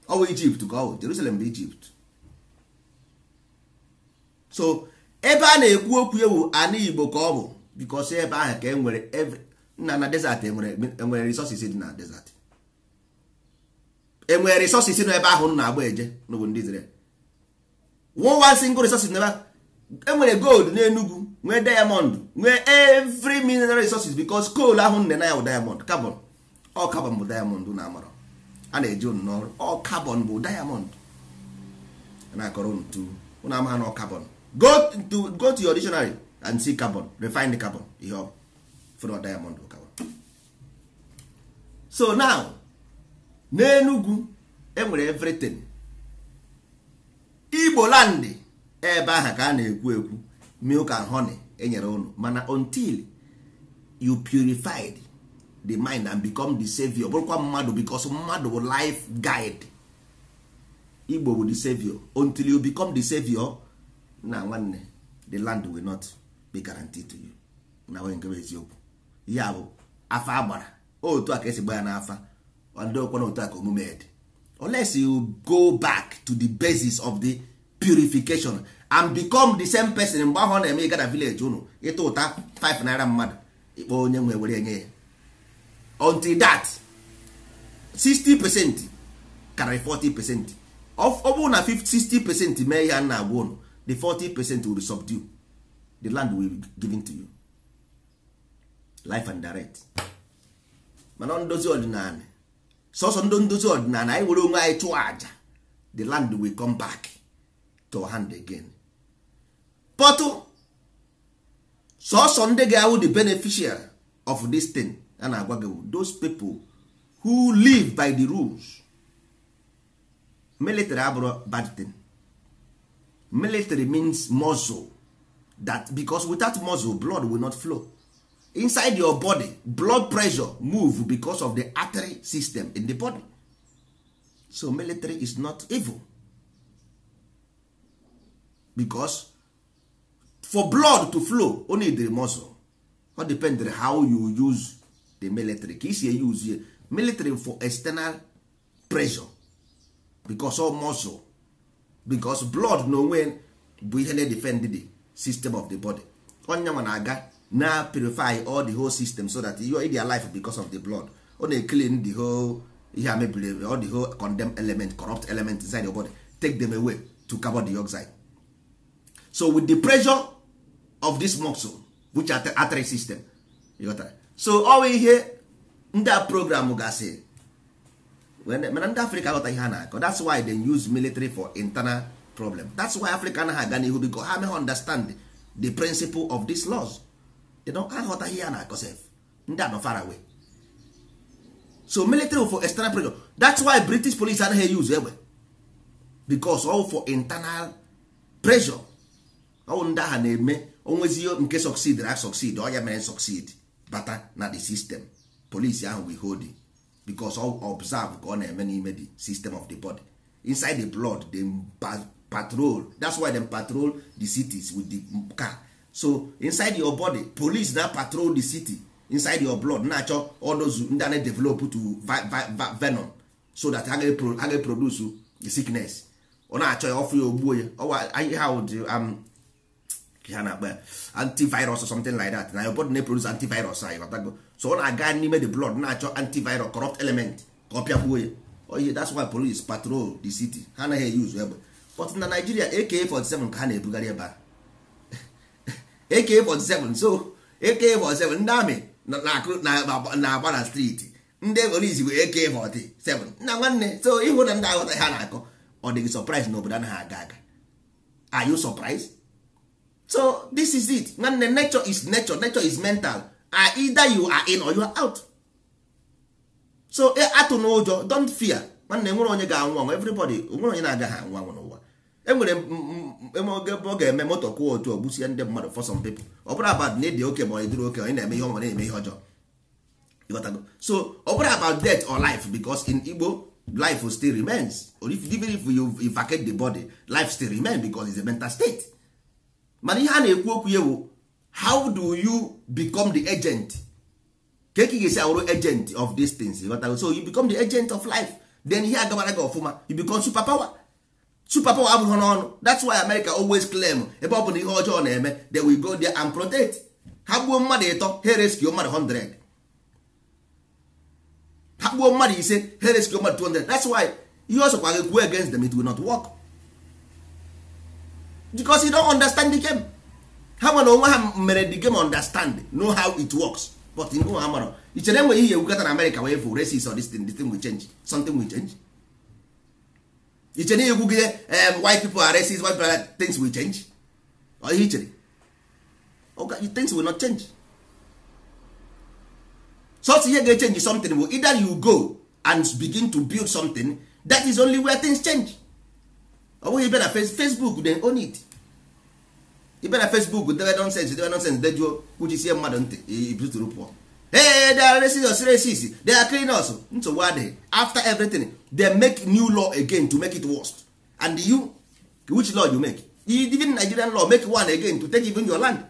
ọ ọwụwa ijipt ka ọ bụ jerusalem bụ ijipt so ebe a na-ekwu okwu ewu ana igbo ka ọ bụ because ebe ahụ ka e nwere nna na desert enwere e resources dị na desert enwere resources nọ ebe ahụ na-agba eje n'obodo ndị Israel one single resources n'ebe enwere gold n'Enugu nwee diamond nwee every mineral resources because coal ahụ nne na ya bụ diamond carbon ọ carbon bụ diamond na amara a na-eji unu n'ọrụ ọ carbon bụ diamond na-akọrọ unu tu unu amaha na ọ carbon go to go to your dictionary and see carbon refined carbon ihe ọ fụrụ diamond bụ carbon so now n'enugwu enwere evritin igbo landị ebe ahụ ka a na-ekwu ekwu milk and honey enyere unu mana until you purified the mind and become the savior bụrụkwa mmadụ because mmadụ bụ life guide igbo bụ the savior until you become the savior na nwanne the land will not be guaranteed to you na nwere nke eziokwu ya bụ afa agbara otu a ka esi gba ya n'afa adokwana otu aka omume dị unless you go back to the basis of the purification and become the same person mgbe ahụ ọ na-eme ịgada village unu ịta ụta 5 naira mmadụ ịkpọ onye nwe were enye ya until that 60 percent karịrị 40 percent ọ na 60 percent mee ihe a na-agwa unu the 40 percent will subdue the land will be given to you life and direct mana ndozi ọdịnala sọsọ ndị ndozi ọdịnala anyị were onwe anyị chụọ aja the land will come back to hand again pọtụ sọsọ ndị ga-awụ the beneficial of this thing a na-agwa gị those people who live by the rules military abụrụ bad thing military means muscle that because without muscle blood will not flow inside your body blood pressure move because of the artery system in the body so military is not evil because for blood to flow only the muscle o depend on how you use the military ka isi use military for external pressure because of muscle because blood na onwe bụ ihe na-edefend the system of the body onye nwa na-aga na purify all the whole system so that you are in their life because of the blood ọ na clean the whole ihe a all the whole condemned element corrupt element inside your body take them away to carbon dioxide so with the pressure of this muscle which artery system you got that? so ọwa ihe ndị a program gasị mana ndị africa ghọta ihe ha na-akọ that's why they use military for internal problem that's why africa anaghị aga n'ihu because ha meghị understand the principle of these laws aghọtaghị ya na akọsef ndị anọ far away so military for external pressure that's why british police anaghị use egbe eh, because all for internal pressure ọwụ ndị agha na-eme onwezio nke succeed ra succeed ọya mere succeed bata na the system police ahụ we hold because all observe ka ọ na-eme n'ime the system of the body inside the blood dem patrol that's why dem patrol the cities with the car so inside your body police na patrol the city inside your blood na-achọ odozu ndị ana develop to venom so that ha ga-produce oh, the sickness ọ na-achọ ya ọfụ ya ogbuo ya ha um, na-akpa ya antivirus or something like that na your body na-produce e antivirus anyị batago so ọ na-aga n'ime the blood na-achọ antivirus corrupt element ka ọ gbuo ya oye that's why police patrol the city ha anaghị use egbe but na Nigeria AK47 ka ha na-ebugharị ebe a AK47 so AK47 ndị amị na-agba na streeti ndị polisi bụ AK47 na nwanne so ịhụ na ndị aghọtaghị ha na-akọ ọ dịghị surprise na obodo anaghị aga aga are you surprised so this is it nwanne nature is nature nature is mental are ah, either you are in or you are out so e, atụ n'ụjọ don't fear nwanne nwere onye ga-anwụ anwụ everybody nwere onye na-agaghị anwụ anwụ enwere oge ọ ga-eme moto kwụọ otu ogbusie ndị mmadụ for some people ọ bụrụ abad na oke ma ọ dịrị oke onye na-eme ihe ọma na-eme ihe ọjọọ so ọ bụrụ about death or life because in Igbo life still remains or if, even if you vacate the body life still remain because it's a mental state mana ihe a na-ekwu okwu ya wo how do you become the agent ka e ka ga-esi awụrụ agent of these things so you become the agent of life then ihe agabara gị ọfụma you become power. superpower abụghị n'ọnụ that's why America always claim ebe ọ bụ na ihe ọjọọ na-eme they will go there and protect ha gbuo mmadụ ịtọ ha rescue mmadụ 100 ha gbuo mmadụ ise ha rescue mmadụ 200 that's why ihe ọsọ gị kwuo against them it will not work because you don't understand the game ha nwere onwe ha mere the game understand know how it works but ha mara ichere enweghị ihe ewukata na America wee fụ races or this thing, this thing will change something will change iche na igwugide white people are racist white people are things will change ọ ihe ichere things will not change sọsọ ihe ga-echange something but either you go and begin to build something that is only where things change ọ bụghị ibe na facebook dey own it ibe na facebook debe nonsense debe nonsense dejuo kwuchisie mmadụ ntị ibitụrụ pụọ hey, they are racist racist they are criminals nsogbu adịghị after everything they make new law again to make it worse and you which law you make even nigerian law make one again to take even your land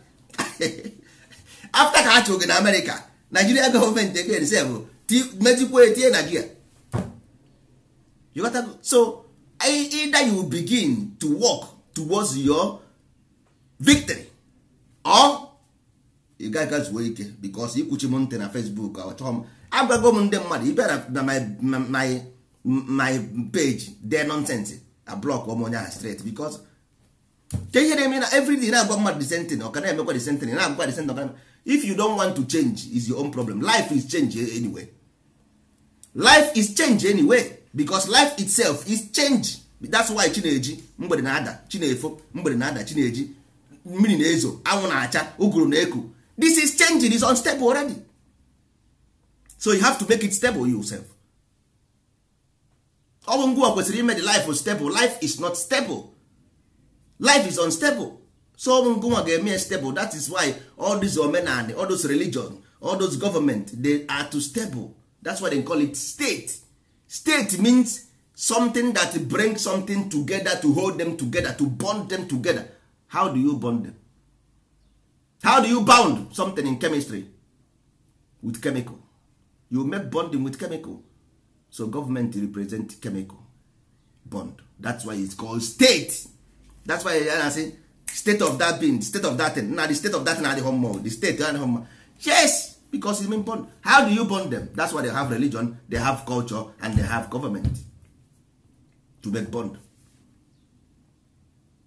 after ka ha chụrụ na america nigeria gọọmenti again sef oh, mejikwa etinye nigeria you got to so e, either you begin to work towards your victory or ị gaghị zuo ike bikos ikwuchi m ntị na fesbuk chọọ m agwago m ndị mmadụ ị bịara na my page de nonsens a blọk m onye ahụ stret bikos ke ihe na-eme na everyday na-agwa mmadụ disentị na ọka na-emekwa disentị na agwakwa disentị ọka if you don't want to change is your own problem life is change anyway life is change anyway because life itself is change that's why chineji mgbede na-ada chinefo mgbede na-ada chineji mmiri na-ezo anwụ na-acha ụgụrụ na-eku this is changing is unstable already so you have to make it stable yourself ọbụ ngwa kwesịrị ime the life stable life is not stable life is unstable so ọbụ ngwa ga-eme stable that is why all this omenani all those religion all those government they are too stable that's why they call it state state means something that brings something together to hold them together to bond them together how do you bond them how do you bound something in chemistry with chemical you make bonding with chemical so government represent chemical bond that's why it's called state that's why I say state of that being state of that thing na the state of that thing na the home mall the state na the home yes because it mean bond how do you bond them that's why they have religion they have culture and they have government to make bond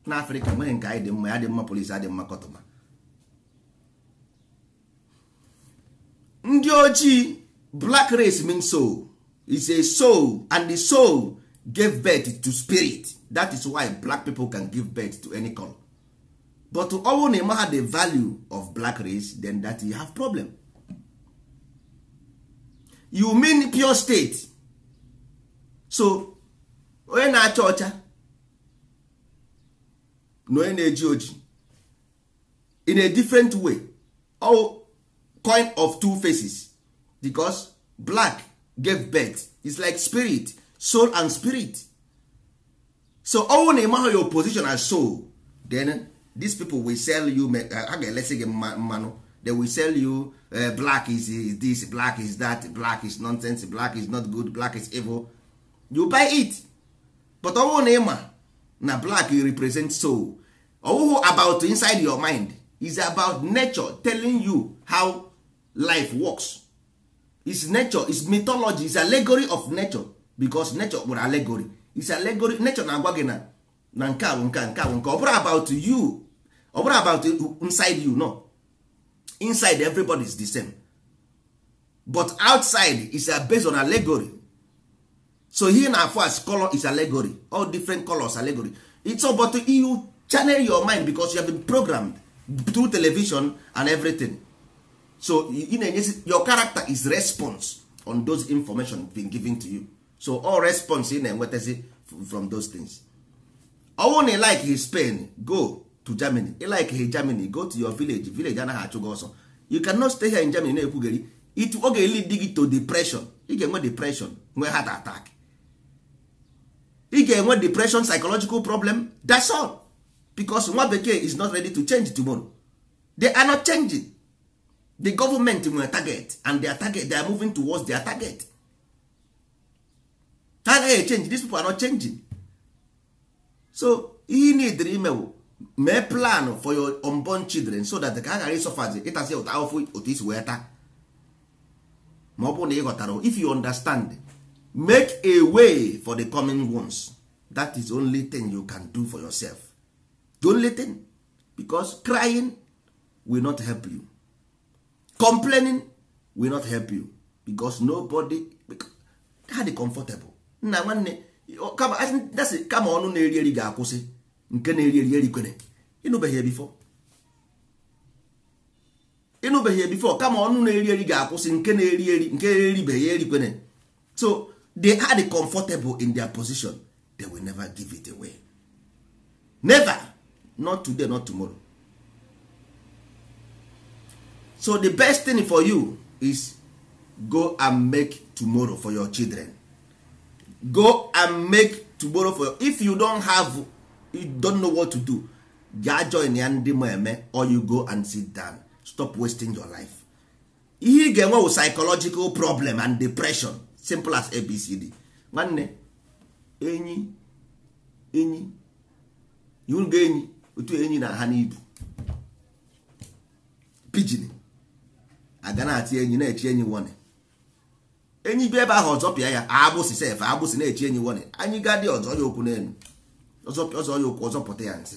na africa nwere nke anyị dị mma ya dị mma polisi adị mma kọtụma ndị ojii black race mean soul is a soul and the soul gave birth to spirit that is why black people can give birth to any color but ọwụ na ịma the value of black race then that you have problem you mean pure state so onye na-acha ọcha na onye na-eji oji in a different way oh, coin of two faces because black gave birth is like spirit soul and spirit so ọnwụ na your position as soul then these people will sell you eh, ha ga-elesi gị mmanụ they will sell you uh, black is this black is that black is nonsense black is not good black is evil you buy it but ọnwụ na ịma na black you represent soul ọwụhụ about inside your mind is about nature telling you how life works is nature is mythology is allegory of nature because nature kpụrụ allegory is allegory nature na-agwa gị na na nke a bụ nke nke bụ nke ọ bụrụ about you ọ bụrụ about inside you no inside everybody is the same but outside is based on allegory so here na afọ as color is allegory all different colors allegory it's about you channel your mind because you have been programmed through television and everything so ị na-enyezi your character is response on those information been given to you so all response ị na-enwetazi from those things ọ na like his Spain go to Germany ị like his Germany go to your village village anaghị achụ gị ọsọ you cannot stay here in Germany na-ekwugheri it oge lead gị to depression ị ga-enwe depression nwee heart attack ị ga-enwe depression psychological problem that's all becos nwa bekee is not ready to change tomorrow they are not changing the government nwere target and their target they are moving towards their target ha agaghị change these people are not changing so ihe needịrị imewu mee plan for your unborn children so that ka ha ghara ịsọfazi ịtazi ụta ahụfụ otu isi wee taa ma ọ bụrụ na ị ghọtara if you understand make a way for the coming ones that is only thing you can do for yourself the only thing because crying will not help you complaining will not help you because nobody ha dị comfortable nna nwanne dasị kama ọnụ na-eri eri ga-akwụsị nke na-eri eri erikwere ịnụbeghị ebifo. ịnụbeghị ebifo kama ọnụ na-eri eri ga-akwụsị nke na-eri eri nke eribeghị erikwere so they are the comfortable in their position they will never give it away never not today not tomorrow so the best thing for you is go and make tomorrow for your children go and make tomorrow for your, if you don't have you don't know what to do gaa join ya ndị ma eme or you go and sit down stop wasting your life ihe ị ga-enwe wụ psychological problem and depression simple as abcd nwanne enyi enyi iwurugo enyi otu enyi na ha n'ibu pidgin aga na-atị enyi na-echi enyi wone enyi bi ebe ahụ ọzọ pịa ya agbụsị sef agbụsị na-echi enyi wone anyị gadị ọzọ ya okwu n'elu ọzọ ya okwu ọzọ ya ntị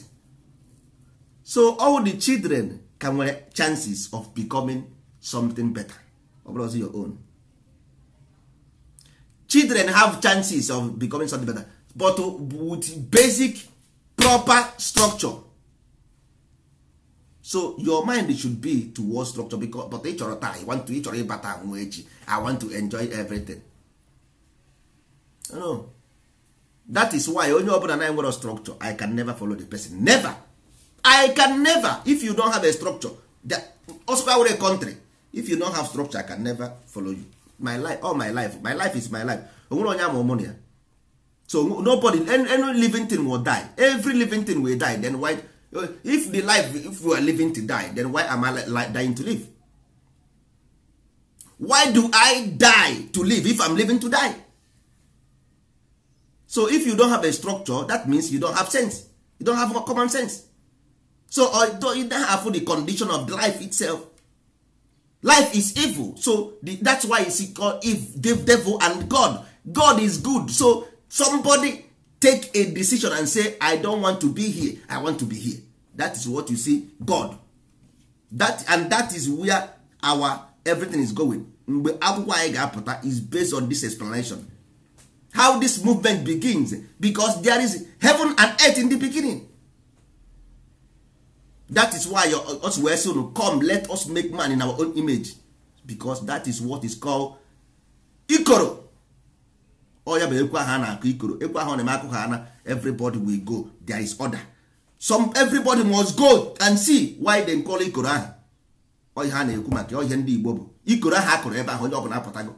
so all the children ka nwere chances of becoming something better ọ your own children have chances of becoming something better but with basic proper structure so your mind should be towards structure because but ị chọrọ taa want to ị chọrọ ịbata nwa echi i want to enjoy everything no. that is why onye ọbụla na nwere structure i can never follow the person never i can never if you don't have a structure i were country if you don't have structure i can never follow you my life all my life my life is my life onwere onye ama ya so nobody any living thing will die every living thing will die then why if the life if we are living to die then why am i dying to live why do i die to live if i'm living to die so if you don't have a structure that means you don't have sense you don't have common sense so although you don't have the condition of life itself life is evil so the, that's why you see called if devil and god god is good so somebody take a decision and say i don't want to be here i want to be here that is what you see god that and that is where our everything is going mgbe akwụkwọ anyị ga-apụta is based on this explanation how this movement begins because there is heaven and earth in the beginning that is why us wee sị come let us make man in our own image because that is what is called ikoro ọ ya bụ ekwe ahụ a na-akụ ikoro ekwe ahụ na-eme akụkọ ana everybody will go there is order some everybody must go and see why dem call ikoro ahụ ọhịa a na-ekwu maka ọhịa ndị Igbo bụ ikoro ahụ akụrụ ebe ahụ onye ọbụla apụtago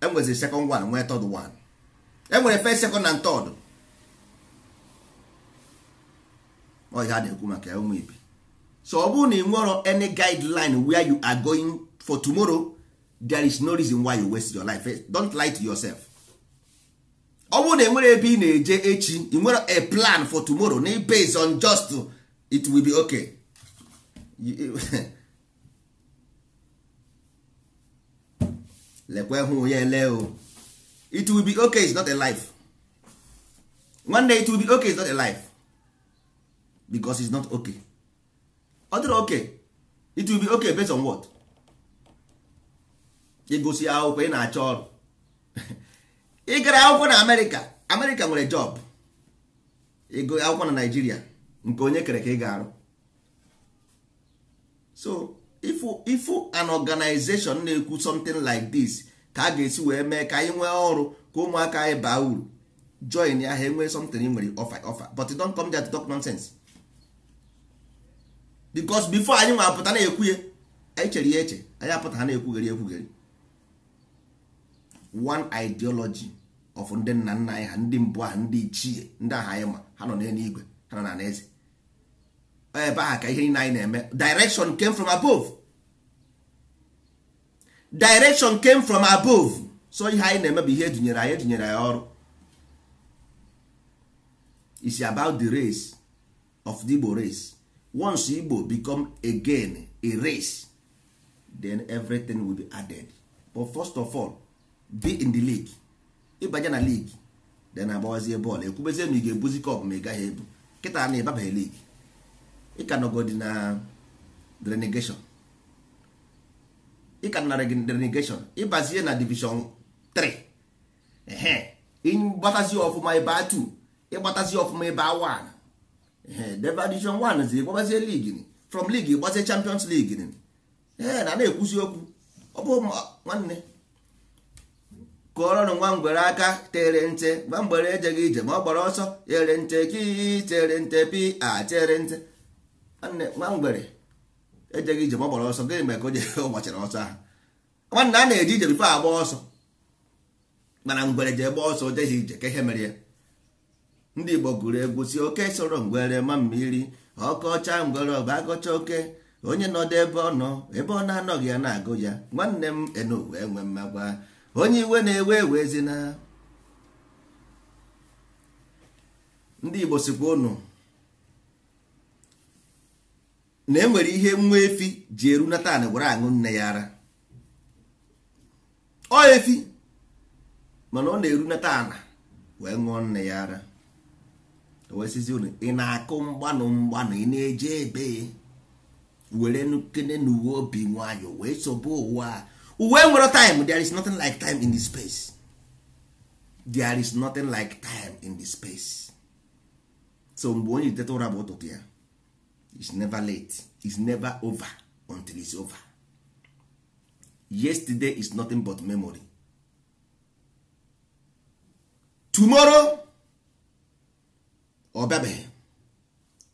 enwezi second one nwee third one enwere first second and third ọhịa a na-ekwu maka ụmụ ibi so ọ bụrụ na ị nwere any guideline where you are going for tomorrow there is no reason why you waste your life eh, don't lie to yourself ọ bụrụ na enwere ebe ị na-eje echi ị nwere a plan for tomorrow na based on just it will be okay lekwe hụ ya ele o it will be okay is not a life one day it will be okay is not a life because it's not okay ọ dịrị okay it will be okay based on what ịgụsị akwụkwọ ị na-achọ ọrụ ị gara akwụkwọ na amerịka amerịka nwere jọb ego akwụkwọ na naijiria nke onye kere ka ị ga-arụ so ifu an organization na-ekwu something like this ka a ga-esi wee mee ka anyị nwee ọrụ ka ụmụaka anyị baa uru join ya ha enwee something ị nwere offer offer but don't come there to talk nonsense because before anyị nwa apụta na-ekwu ya anyị chere ya eche anyị apụta ha na-ekwugheri ekwugheri one ideology of ndị nna nna anyị ha ndị mbụ ha ndị ichie ndị aha anyị ma ha nọ n'eluigwe ha nọ na eze ebe aha ka ihe niile anyị na-eme direction came from above direction came from above so ihe anyị na-eme bụ ihe edunyere anyị edunyere anyị ọrụ is about the race of the Igbo race once Igbo become again a race then everything will be added but first of all be in the league ịbanye na league then agbawazie bọọlụ ekwubezie ma ị ga-ebuzi kọp ma ị gaghị ebu kịta na ịbabaghị league ịka nọgodi na drenigeshon ịka nara gị drenigeshon ịbazie na division 3 ehe ịgbatazi ọfụma ebe a 2 ịgbatazi ọfụma ebe a 1 ehe debe division 1 zi ịgbabazie league from league ịgbazie champions league na na-ekwuzi okwu ọ bụ nwanne kụọrọnụ nwa ngwere aka tere nte gba mgbere ejeghị ije ma ọ gbara ọsọ tere nte ki tere nte pi a tere nte nwa ngwere ejeghị ije ma ọ gbara ọsọ gịnị mere ka o jere ụgbachara ọsọ ahụ nwanne a na-eje ije bifo agba ọsọ mana ngwere jee gba ọsọ jeghị ije ka ihe mere ya ndị Igbo gụrụ egwu si oke soro ngwere ma mmiri ọcha ngwere ọba agọcha oke onye nọdụ ebe ọ nọ ebe ọ na-anọghị ya na-agụ ya nwanne m enu wee mmagwa onye iwe na-ewe na ndị Igbo sikwa na enwere ihe nwa efi ji eru na taa gwara aṅụ nne ya ara ọ efi mana ọ na-eru na wee ṅụọ nne ya ara wesizi unu ị na-akụ mgbanụ mgbanụ ị na-eje ebe were nkene n'uwe obi nwayọ wee sobe ụwa uwe nwere time there is nothing like time in the space there is nothing like time in the space so mgbe onye iteta ụra bụ ụtụtụ ya is never late is never over until it's over yesterday is nothing but memory tomorrow ọ oh,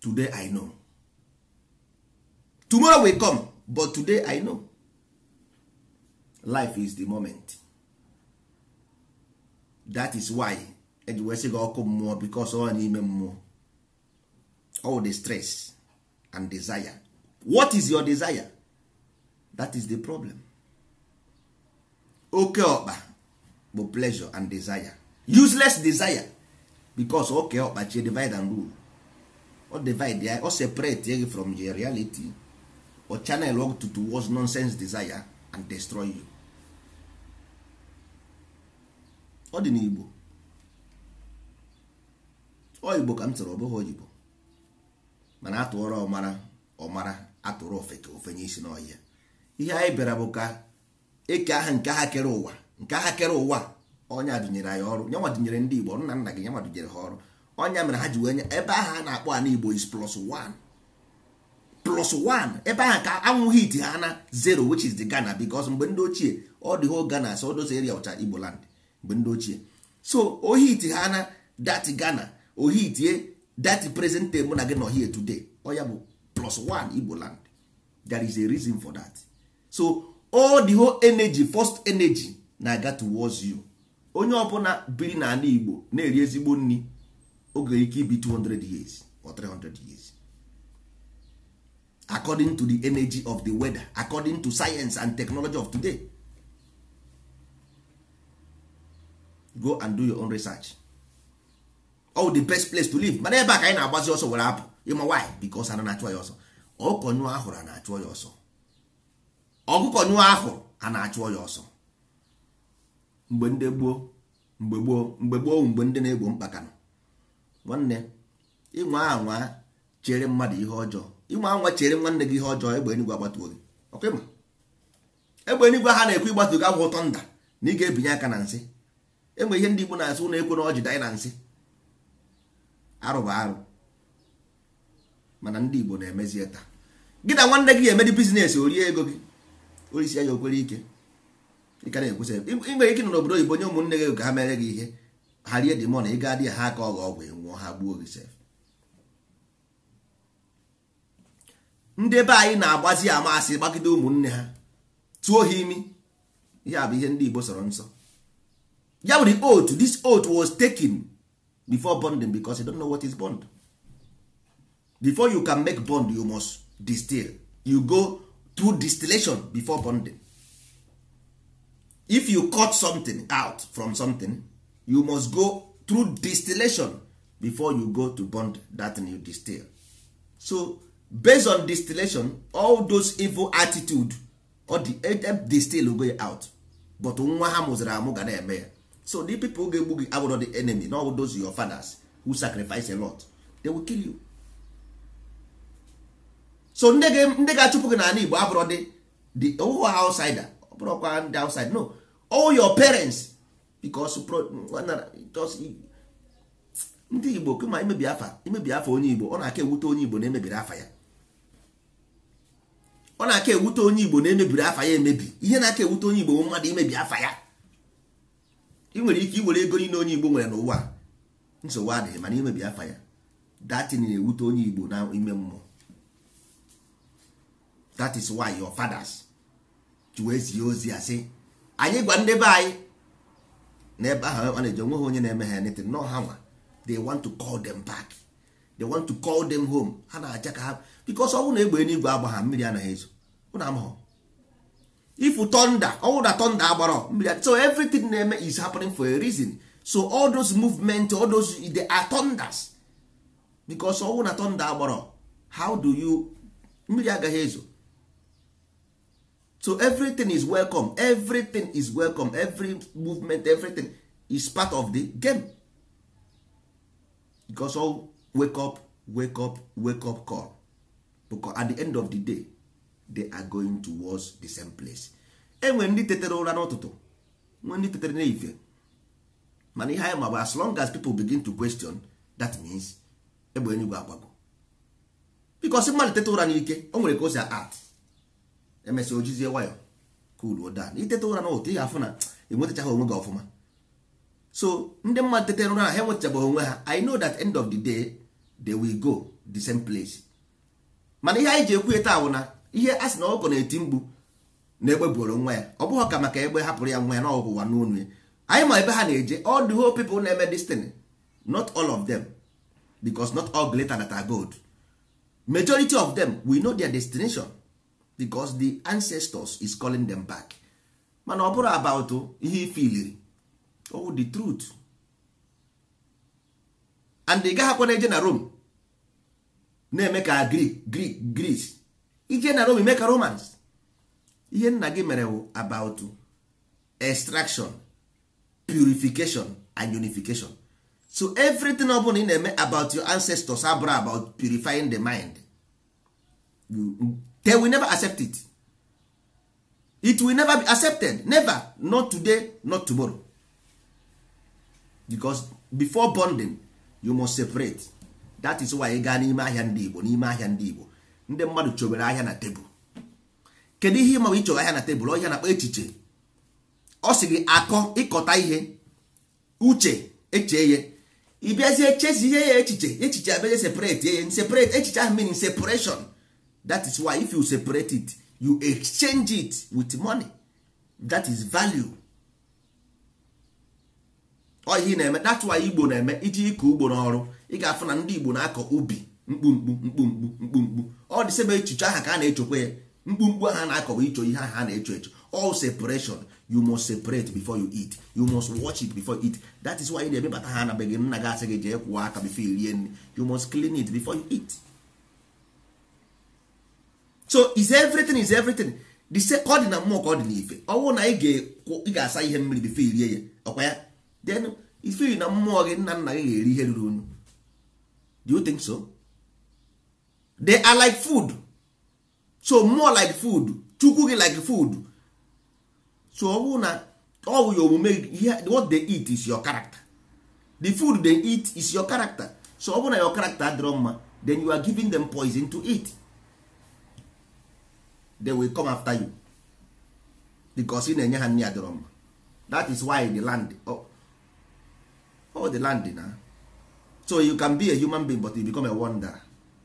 today i know tomorrow will come but today i know life is the moment that is why eji wee sị gị ọkụ mmụọ because ọ n'ime mmụọ all the stress and desire what is your desire that is the problem oke ọkpa bụ pleasure and desire useless desire because oke ọkpa chi divide and rule o divide ya o separate ya from your reality or channel work to towards nonsense desire and destroy you ọ dị n'Igbo ọ Igbo ka m chọrọ ọ bụghị oyibo mana atụọrọ ọmara ọmara atụrụ ofeke ofenye isi n'ọhịa ihe anyị bịara bụ ka eke aha nke aha kere ụwa nke aha kere ụwa onye dụnyere anyị ọrụ nyanwa dụnyere ndị Igbo nna nna gị nyanwa dụnyere ha ọrụ ọnya mere ha ji wee nye ebe ahụ a na-akpọ ana Igbo is plus one plus one ebe ahụ ka anwụ iti ha na zero which is the Ghana because mgbe ndị ochie ọ dị ho Ghana so those eria ọcha Igbo mgbe ndị ochie so ohiti ha na dati Ghana ohitie dati present time mụ na gị nọ here today oya bụ plus one Igbo land there is a reason for that so all the whole energy first energy na-aga towards you onye ọbụla biri n'ala Igbo na-eri ezigbo nri oge ike ibi 200 years or 300 years according to the energy of the weather according to science and technology of today go and do your own research all oh, the best place to live mana ebe a ka anyị na-agbazi ọsọ were apụ ịma why because ana na-achụ ya ọsọ ọkụkọ nyụọ ahụrụ a na-achụ ya ọsọ ọkụkọ nyụọ ahụ a na-achụ ya ọsọ mgbe ndị gboo mgbe gboo mgbe gboo mgbe ndị na-egbo mkpaka nọ nwanne ịnwa anwa chere mmadụ ihe ọjọọ ịnwa anwa chere nwanne gị ihe ọjọọ egbe enigwe agbatuo gị ọkwa ịma egbe enigwe ha na-ekwu ịgbatu gị agwụ ụtọ nda na ị ga-ebinye aka na nsị enwe ihe ndị Igbo na-asị ụlọ ekwe na ọ dị na arụ bụ arụ mana ndị Igbo na-emezie taa gị na nwanne gị ga-emedi bizinesi orie ego gị orisi ya okwere ike ịka na ike nọ n'obodo oyibo nye ụmụnne gị ka ha mere gị ihe ha rie dị mọna ị ga dị ha aka ọghọ ọgwụ nwụọ ha gbuo gị sef ndị be anyị na-agbazi amasị gbagide ụmụnne ha tụọ ha imi ihe a bụ ihe ndị Igbo sọrọ nsọ ya bụ the oath this oath was taken before bonding because you don't know what is bond before you can make bond you must distill you go through distillation before bonding if you cut something out from something you must go through distillation before you go to bond that new you distill so based on distillation all those evil attitude or the eh, distill go out but nwa ha mụziri amụ ga na-eme ya so the people ga-egbu gị abụrụ the enemy na ọbụ those your fathers who sacrifice a lot they will kill you so ndị ga-achụpụ gị n'ala Igbo abụrụ dị the oh, ọwụwa oh, outsider ọbụrụkwa ndị outside no all your parents because ndị Igbo kama imebi afa imebi afa onye Igbo ọ na-aka ewute onye Igbo na-emebiri afa ya ọ na-aka ewute onye Igbo na-emebiri afa ya emebi ihe na-aka ewute onye Igbo mmadụ imebi afa ya ị nwere ike iwere ego niile onye igbo nwere n'ụwa nsogbu adịghị mana imebi afa ya datin na-ewute onye igbo n'ime mmụọ that is why your fathers ji ozi a sị anyị gwa ndị be anyị na ebe ahụ a na-eji onwe ha onye na-eme ha anything nọ ha nwa they want to call them back they want to call them home ha na-aja ka ha because ọ bụrụ na egbe eluigwe agba ha mmiri anaghị ezo ụna amahọ ifu thunder ọnwụ na thunder agbara so everything na-eme is happening for a reason so all those movement all those they are thunders because ọnwụ na thunder agbara how do you mmiri agaghị ezo so everything is welcome everything is welcome every movement everything is part of the game because all wake up wake up wake up call because at the end of the day they are going towards the same place enwere ndị tetere ụra n'ụtụtụ nwee ndị tetere n'ife mana ihe anyị magba as long as people begin to question that means egbe enugwu agbago bikos mmadụ tete ụra n'ike o nwere ka o si art emesịa ojizie wayọ kuluo dan itete ụra n'ụtụtụ ị ga-afụ na enwetachaghị onwe gị ọfụma so ndị mmadụ tetere ụra ha enwetachabeghị onwe ha i know that end of the day they will go the same place mana ihe anyị ji ekwu taa bụ na ihe a sị na ọkụkọ na-eti mgbu na egbe buoro nwa ya ọ bụghị ka maka egbe hapụrụ ya nwa ya n'ọwụwa n'onu ya anyị ma ebe ha na-eje all the whole people na-eme destiny not all of them because not all glitter that are gold majority of them we know their destination because the ancestors is calling them back mana ọ bụrụ about ihe ifiliri oh the truth and ị gaghị akwa na-eje na Rome na-eme ka Greek Greek Greece ije na Rome make a Romans ihe nna gị mere wụ about extraction purification and unification so everything ọ bụla ị na-eme about your ancestors abụrụ about purifying the mind they will never accept it it will never be accepted never not today not tomorrow because before bonding you must separate that is why ị gaa n'ime ahịa ndị Igbo n'ime ahịa ndị Igbo ndị mmadụ chobere ahịa na tebụl kedu ihe ịma ịchọrọ ahịa na tebụl ọhịa na-akpa echiche ọ sị gị akọ ịkọta ihe uche eche ya ịbịazie ihe ya echiche echiche abịazie separate ya separate echiche ahụ meaning separation that is why if you separate it you exchange it with money that is value ọ ihe na-eme that's why igbo na-eme iji ịkọ ugbo n'ọrụ ị ga-afụ na ndị igbo na-akọ ubi mkpumkpu mkpumkpu mkpumkpu ọ dị sebe echiche aha ka a na-echekwa ya mkpumkpu aha na-akọwa icho ihe aha a na-echo echo all separation you must separate before you eat you must watch it before you eat that is why ị na-emebata ha na begị nna gị asị gị jee kwụọ aka before irie nri you must clean it before you eat so is everything is everything the se ka ọ dị na mmụọ ka ọ dị n'ife ọnwụ na ị ga-asa ihe mmiri before irie ya ọkwa ya then ifeyi na mmụọ gị nna nna gị ga-eri ihe ruru unu do so? they are like food so more like food chukwu gị like food so ọ bụrụ na ọ bụ ya omume what they eat is your character the food they eat is your character so ọ bụrụ na your character adịrọ mma then you are giving them poison to eat they will come after you because ị na-enye ha nri adịrọ mma that is why the land oh, oh the land na so you can be a human being but you become a wanderer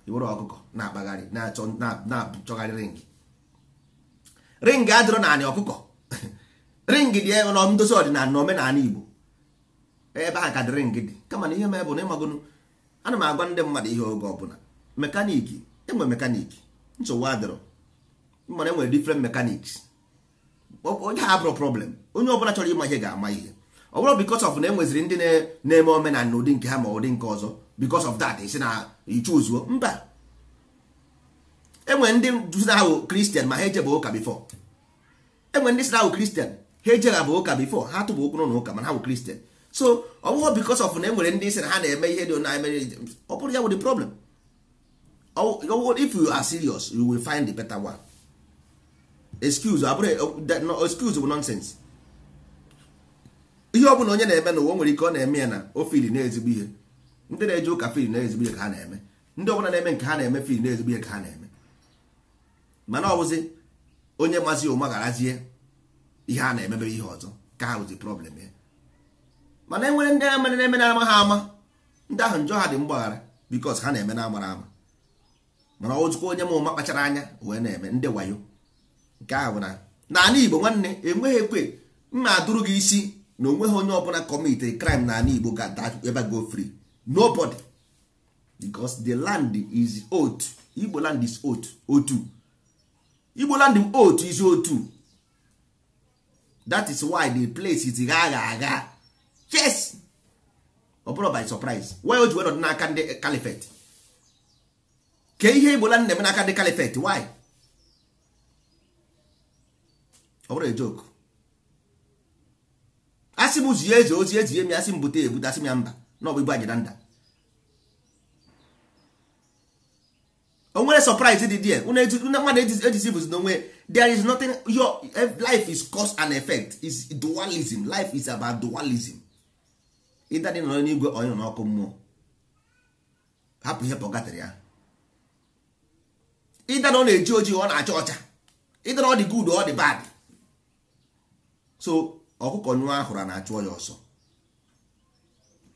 iwere ọkụkọ na-akpagharị na-achọgharị ring ring adịrọ naanị ọkụkọ ring dị ndozi ọdịnala na omenala Igbo ebe a ka dị ring dị kama na ihe m bụ na ịmagụnụ ana m agwa ndị mmadụ ihe oge ọbụla mekaniki enwe mekaniki nsogbu adịrọ mana enwere different onye ha bụrụ problem onye ọbụla chọrọ ịma ihe ga-ama ihe ọ bụrụ because of na enweziri ndị na-eme omenala n'ụdị nke ha ma ụdị nke ọzọ because of that isi na ichu ichuzuo mba enwere ndị na ahụ kristian ma ha eje bụ ụka bifo enwere ndị si na ahụ kristian ha eje ha bụ ụka bifo ha tụbụ ụkwụ n'ụlọ ụka mana ha bụ kristian so ọ bụghị because of na enwere ndị si na ha na-eme ihe dị na emere ọ bụrụ ya bụ the problem if you are serious you will find the better one excuse abụrụ excuse bụ nonsense ihe ọ bụla onye na-eme na n'ụwa nwere ike ọ na-eme ya na o fili na ezigbo ihe ndị na-eje ụka fil na-ezigbo ihe ka ha na-eme ndị ọbụla na-eme nke ha na-eme fil na-ezigbo ihe ka ha na-eme mana ọ bụzi onye mazi ụma garazie ihe a na-emebe ihe ọzọ ka ha bụzi problem ya mana enwere ndị na na-eme na-ama ha ama ndị ahụ njọ ha dị mgbaghara bikos ha na-eme na amara ama mana ọzụkwa onye ma ụma kpachara anya wee na-eme ndị wayo nke ahụ bụ na n'ala Igbo nwanne enweghị ekwe mma adụrụ gị isi na onweghị onye ọbụla kọmiti kraịm n'ala Igbo ga-ada ebe go fri nobody because the land is old igbo land is old otu igbo land otu is otu that is why the place is gagha agha yes ọ bụrụ by surprise why o ji wedọ n'aka ndị califet ke ihe igbo land na-eme n'aka ndị califet why ọ bụrụ joke asị m zie eze ozi eji mi asị m bute ebute asị m ya mba n'ọbụ ọ bụ igbu ajidanda o nwere surprise dị there mmadụ ejizibuzi na onwe there is nothing your eh, life is cause and effect is dualism life is about dualism ịda dị nọ n'igwe onye na n'ọkụ mmụọ hapụ ihe pọgatịrị ya ịda na ọ na-eji ojii ọ na-acha ọcha ịda na ọ dị good ọ dị bad so ọkụkọ nwa ahụrụ na-achụ ọsọ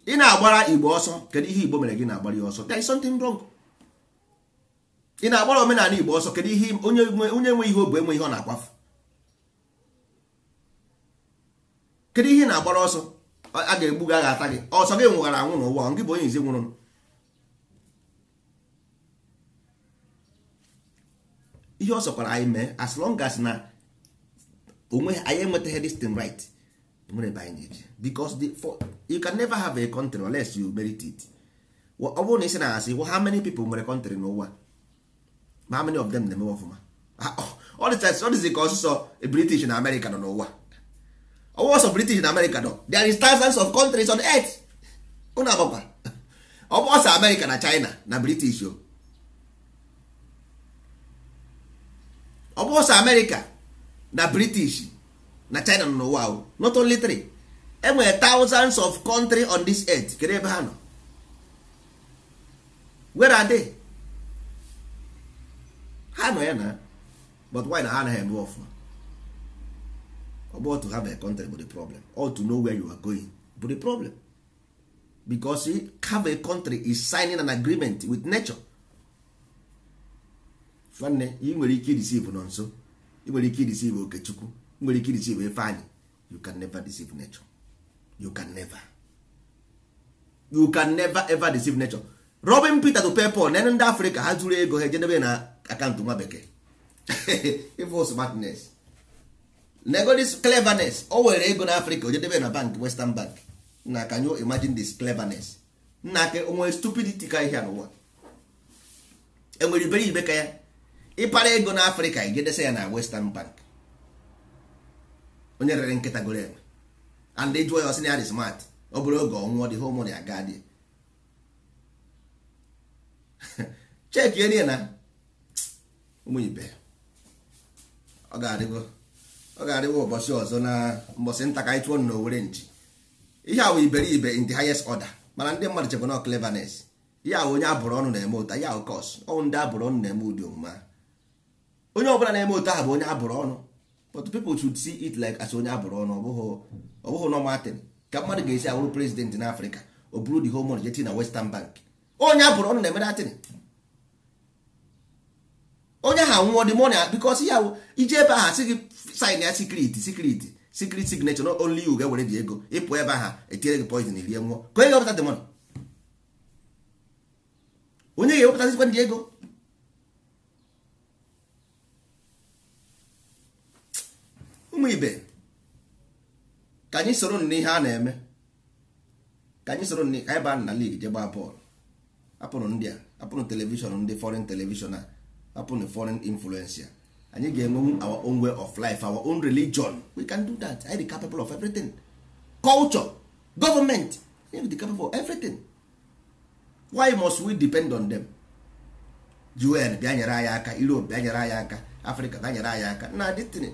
ị na-agbara igbo ọsọ kedu ihe igbo mere gị na-agbara ya ọsọ there is something wrong ị na-agbara omenala igbo ọsọ kedu ihe onye nwe ihe obu enwe ihe ọ na-akwafu kedu ihe na-agbara ọsọ a ga-egbu gị a ata gị ọsọ gị nwụghara anwụ n'ụwa gị bụ onye izi nwụrụ ihe ọ sọkwara anyị mee as long as na onwe anyị enwetaghị this thing right nwere ebe anyị na-eji because the, for, you can never have a country unless you merit it ọ bụrụ na isi na asị how many people nwere country n'ụwa ma how many of them na-emewe ọfụma ọ dịzi ka ọsụsọ british na america nọ n'ụwa ọwụ oh, ọsọ british na america nọ there is thousands of countries on earth ụnụ agbakwa ọ bụ ọsọ america na china na british o ọ bụ ọsọ america na british na china nọ n'ụwa not only three enwere thousands of country on this earth kedu ebe ha nọ where are they ha nọ ya na but why na ha anaghị eme ọfụma about to have a country bụ the problem or to know where you are going bụ the problem because have a country is signing an agreement with nature nwanne ị nwere ike idisive nọ nso ị nwere ike idisive okechukwu nwere ike deceive ife anyị you can never deceive nature you can never you can never ever deceive nature Robin Peter to PayPal na ndị africa ha zuru ego ha ejedebe na akaụntụ nwa bekee evil smartness nego this cleverness o ego na Afrịka ojedebe na bank Western Bank na can imagine this cleverness nna nwere onwe stupidity ka ihe n'ụwa enwere iberibe ka ya ịpara ego na Afrịka ya na Western Bank onye rere nkịta goro enwe and jụọ ya ọsị na ya dị smart ọ bụrụ oge ọnwụọ dị home ya aga dị cheki enye na ụmụibe ọ ga-adịgo ọ ga-adịgo ụbọchị ọzọ na mbọsị nta ka anyị tụọ na owere nchi ihe a wụ iberibe in the highest order mana ndị mmadụ chekwa na cleverness ihe awụ onye abụrụ ọnụ na-eme ụta ya awụ kọs ọnwụ ndị abụrụ ọnụ na-eme ụdị omume onye ọbụla na-eme ụta ahụ bụ onye abụrụ ọnụ but people should see it like as onye abụrụ ọnụ ọbụghị normal thing ka mmadụ ga-esi awụrụ president na afrịka o buru the home money jeti na western bank onye abụrụ ọnụ na-emere atịn onye ahụ anwụọ the money because ya ije ebe ahụ sị gị sign ya secret secret secret signature not only you ga-ewere dị ego ịpụ ebe ahụ etinyere gị poison rie nwụọ ka onye ga-ewepụta the money onye ga-ewepụta ndị ego ụmụ ibe ka anyị soro n'ihe a na-eme ka anyị soro ka anyị baa na lig je gbaa bọọlụ apụrụ ndị a apụrụ telivishọn ndị foreign telivishọn a apụrụ foreign influencer anyị ga-enwe our own way of life our own religion we can do that I dị capable of everything culture government I dị capable of everything why must we depend on them UN bịa nyere anyị aka Europe bịa nyere anyị aka Africa bịa nyere anyị aka na dịtịnị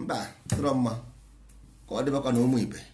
mba tụrọ mma ka ọ dịbakwa na ụmụ ibe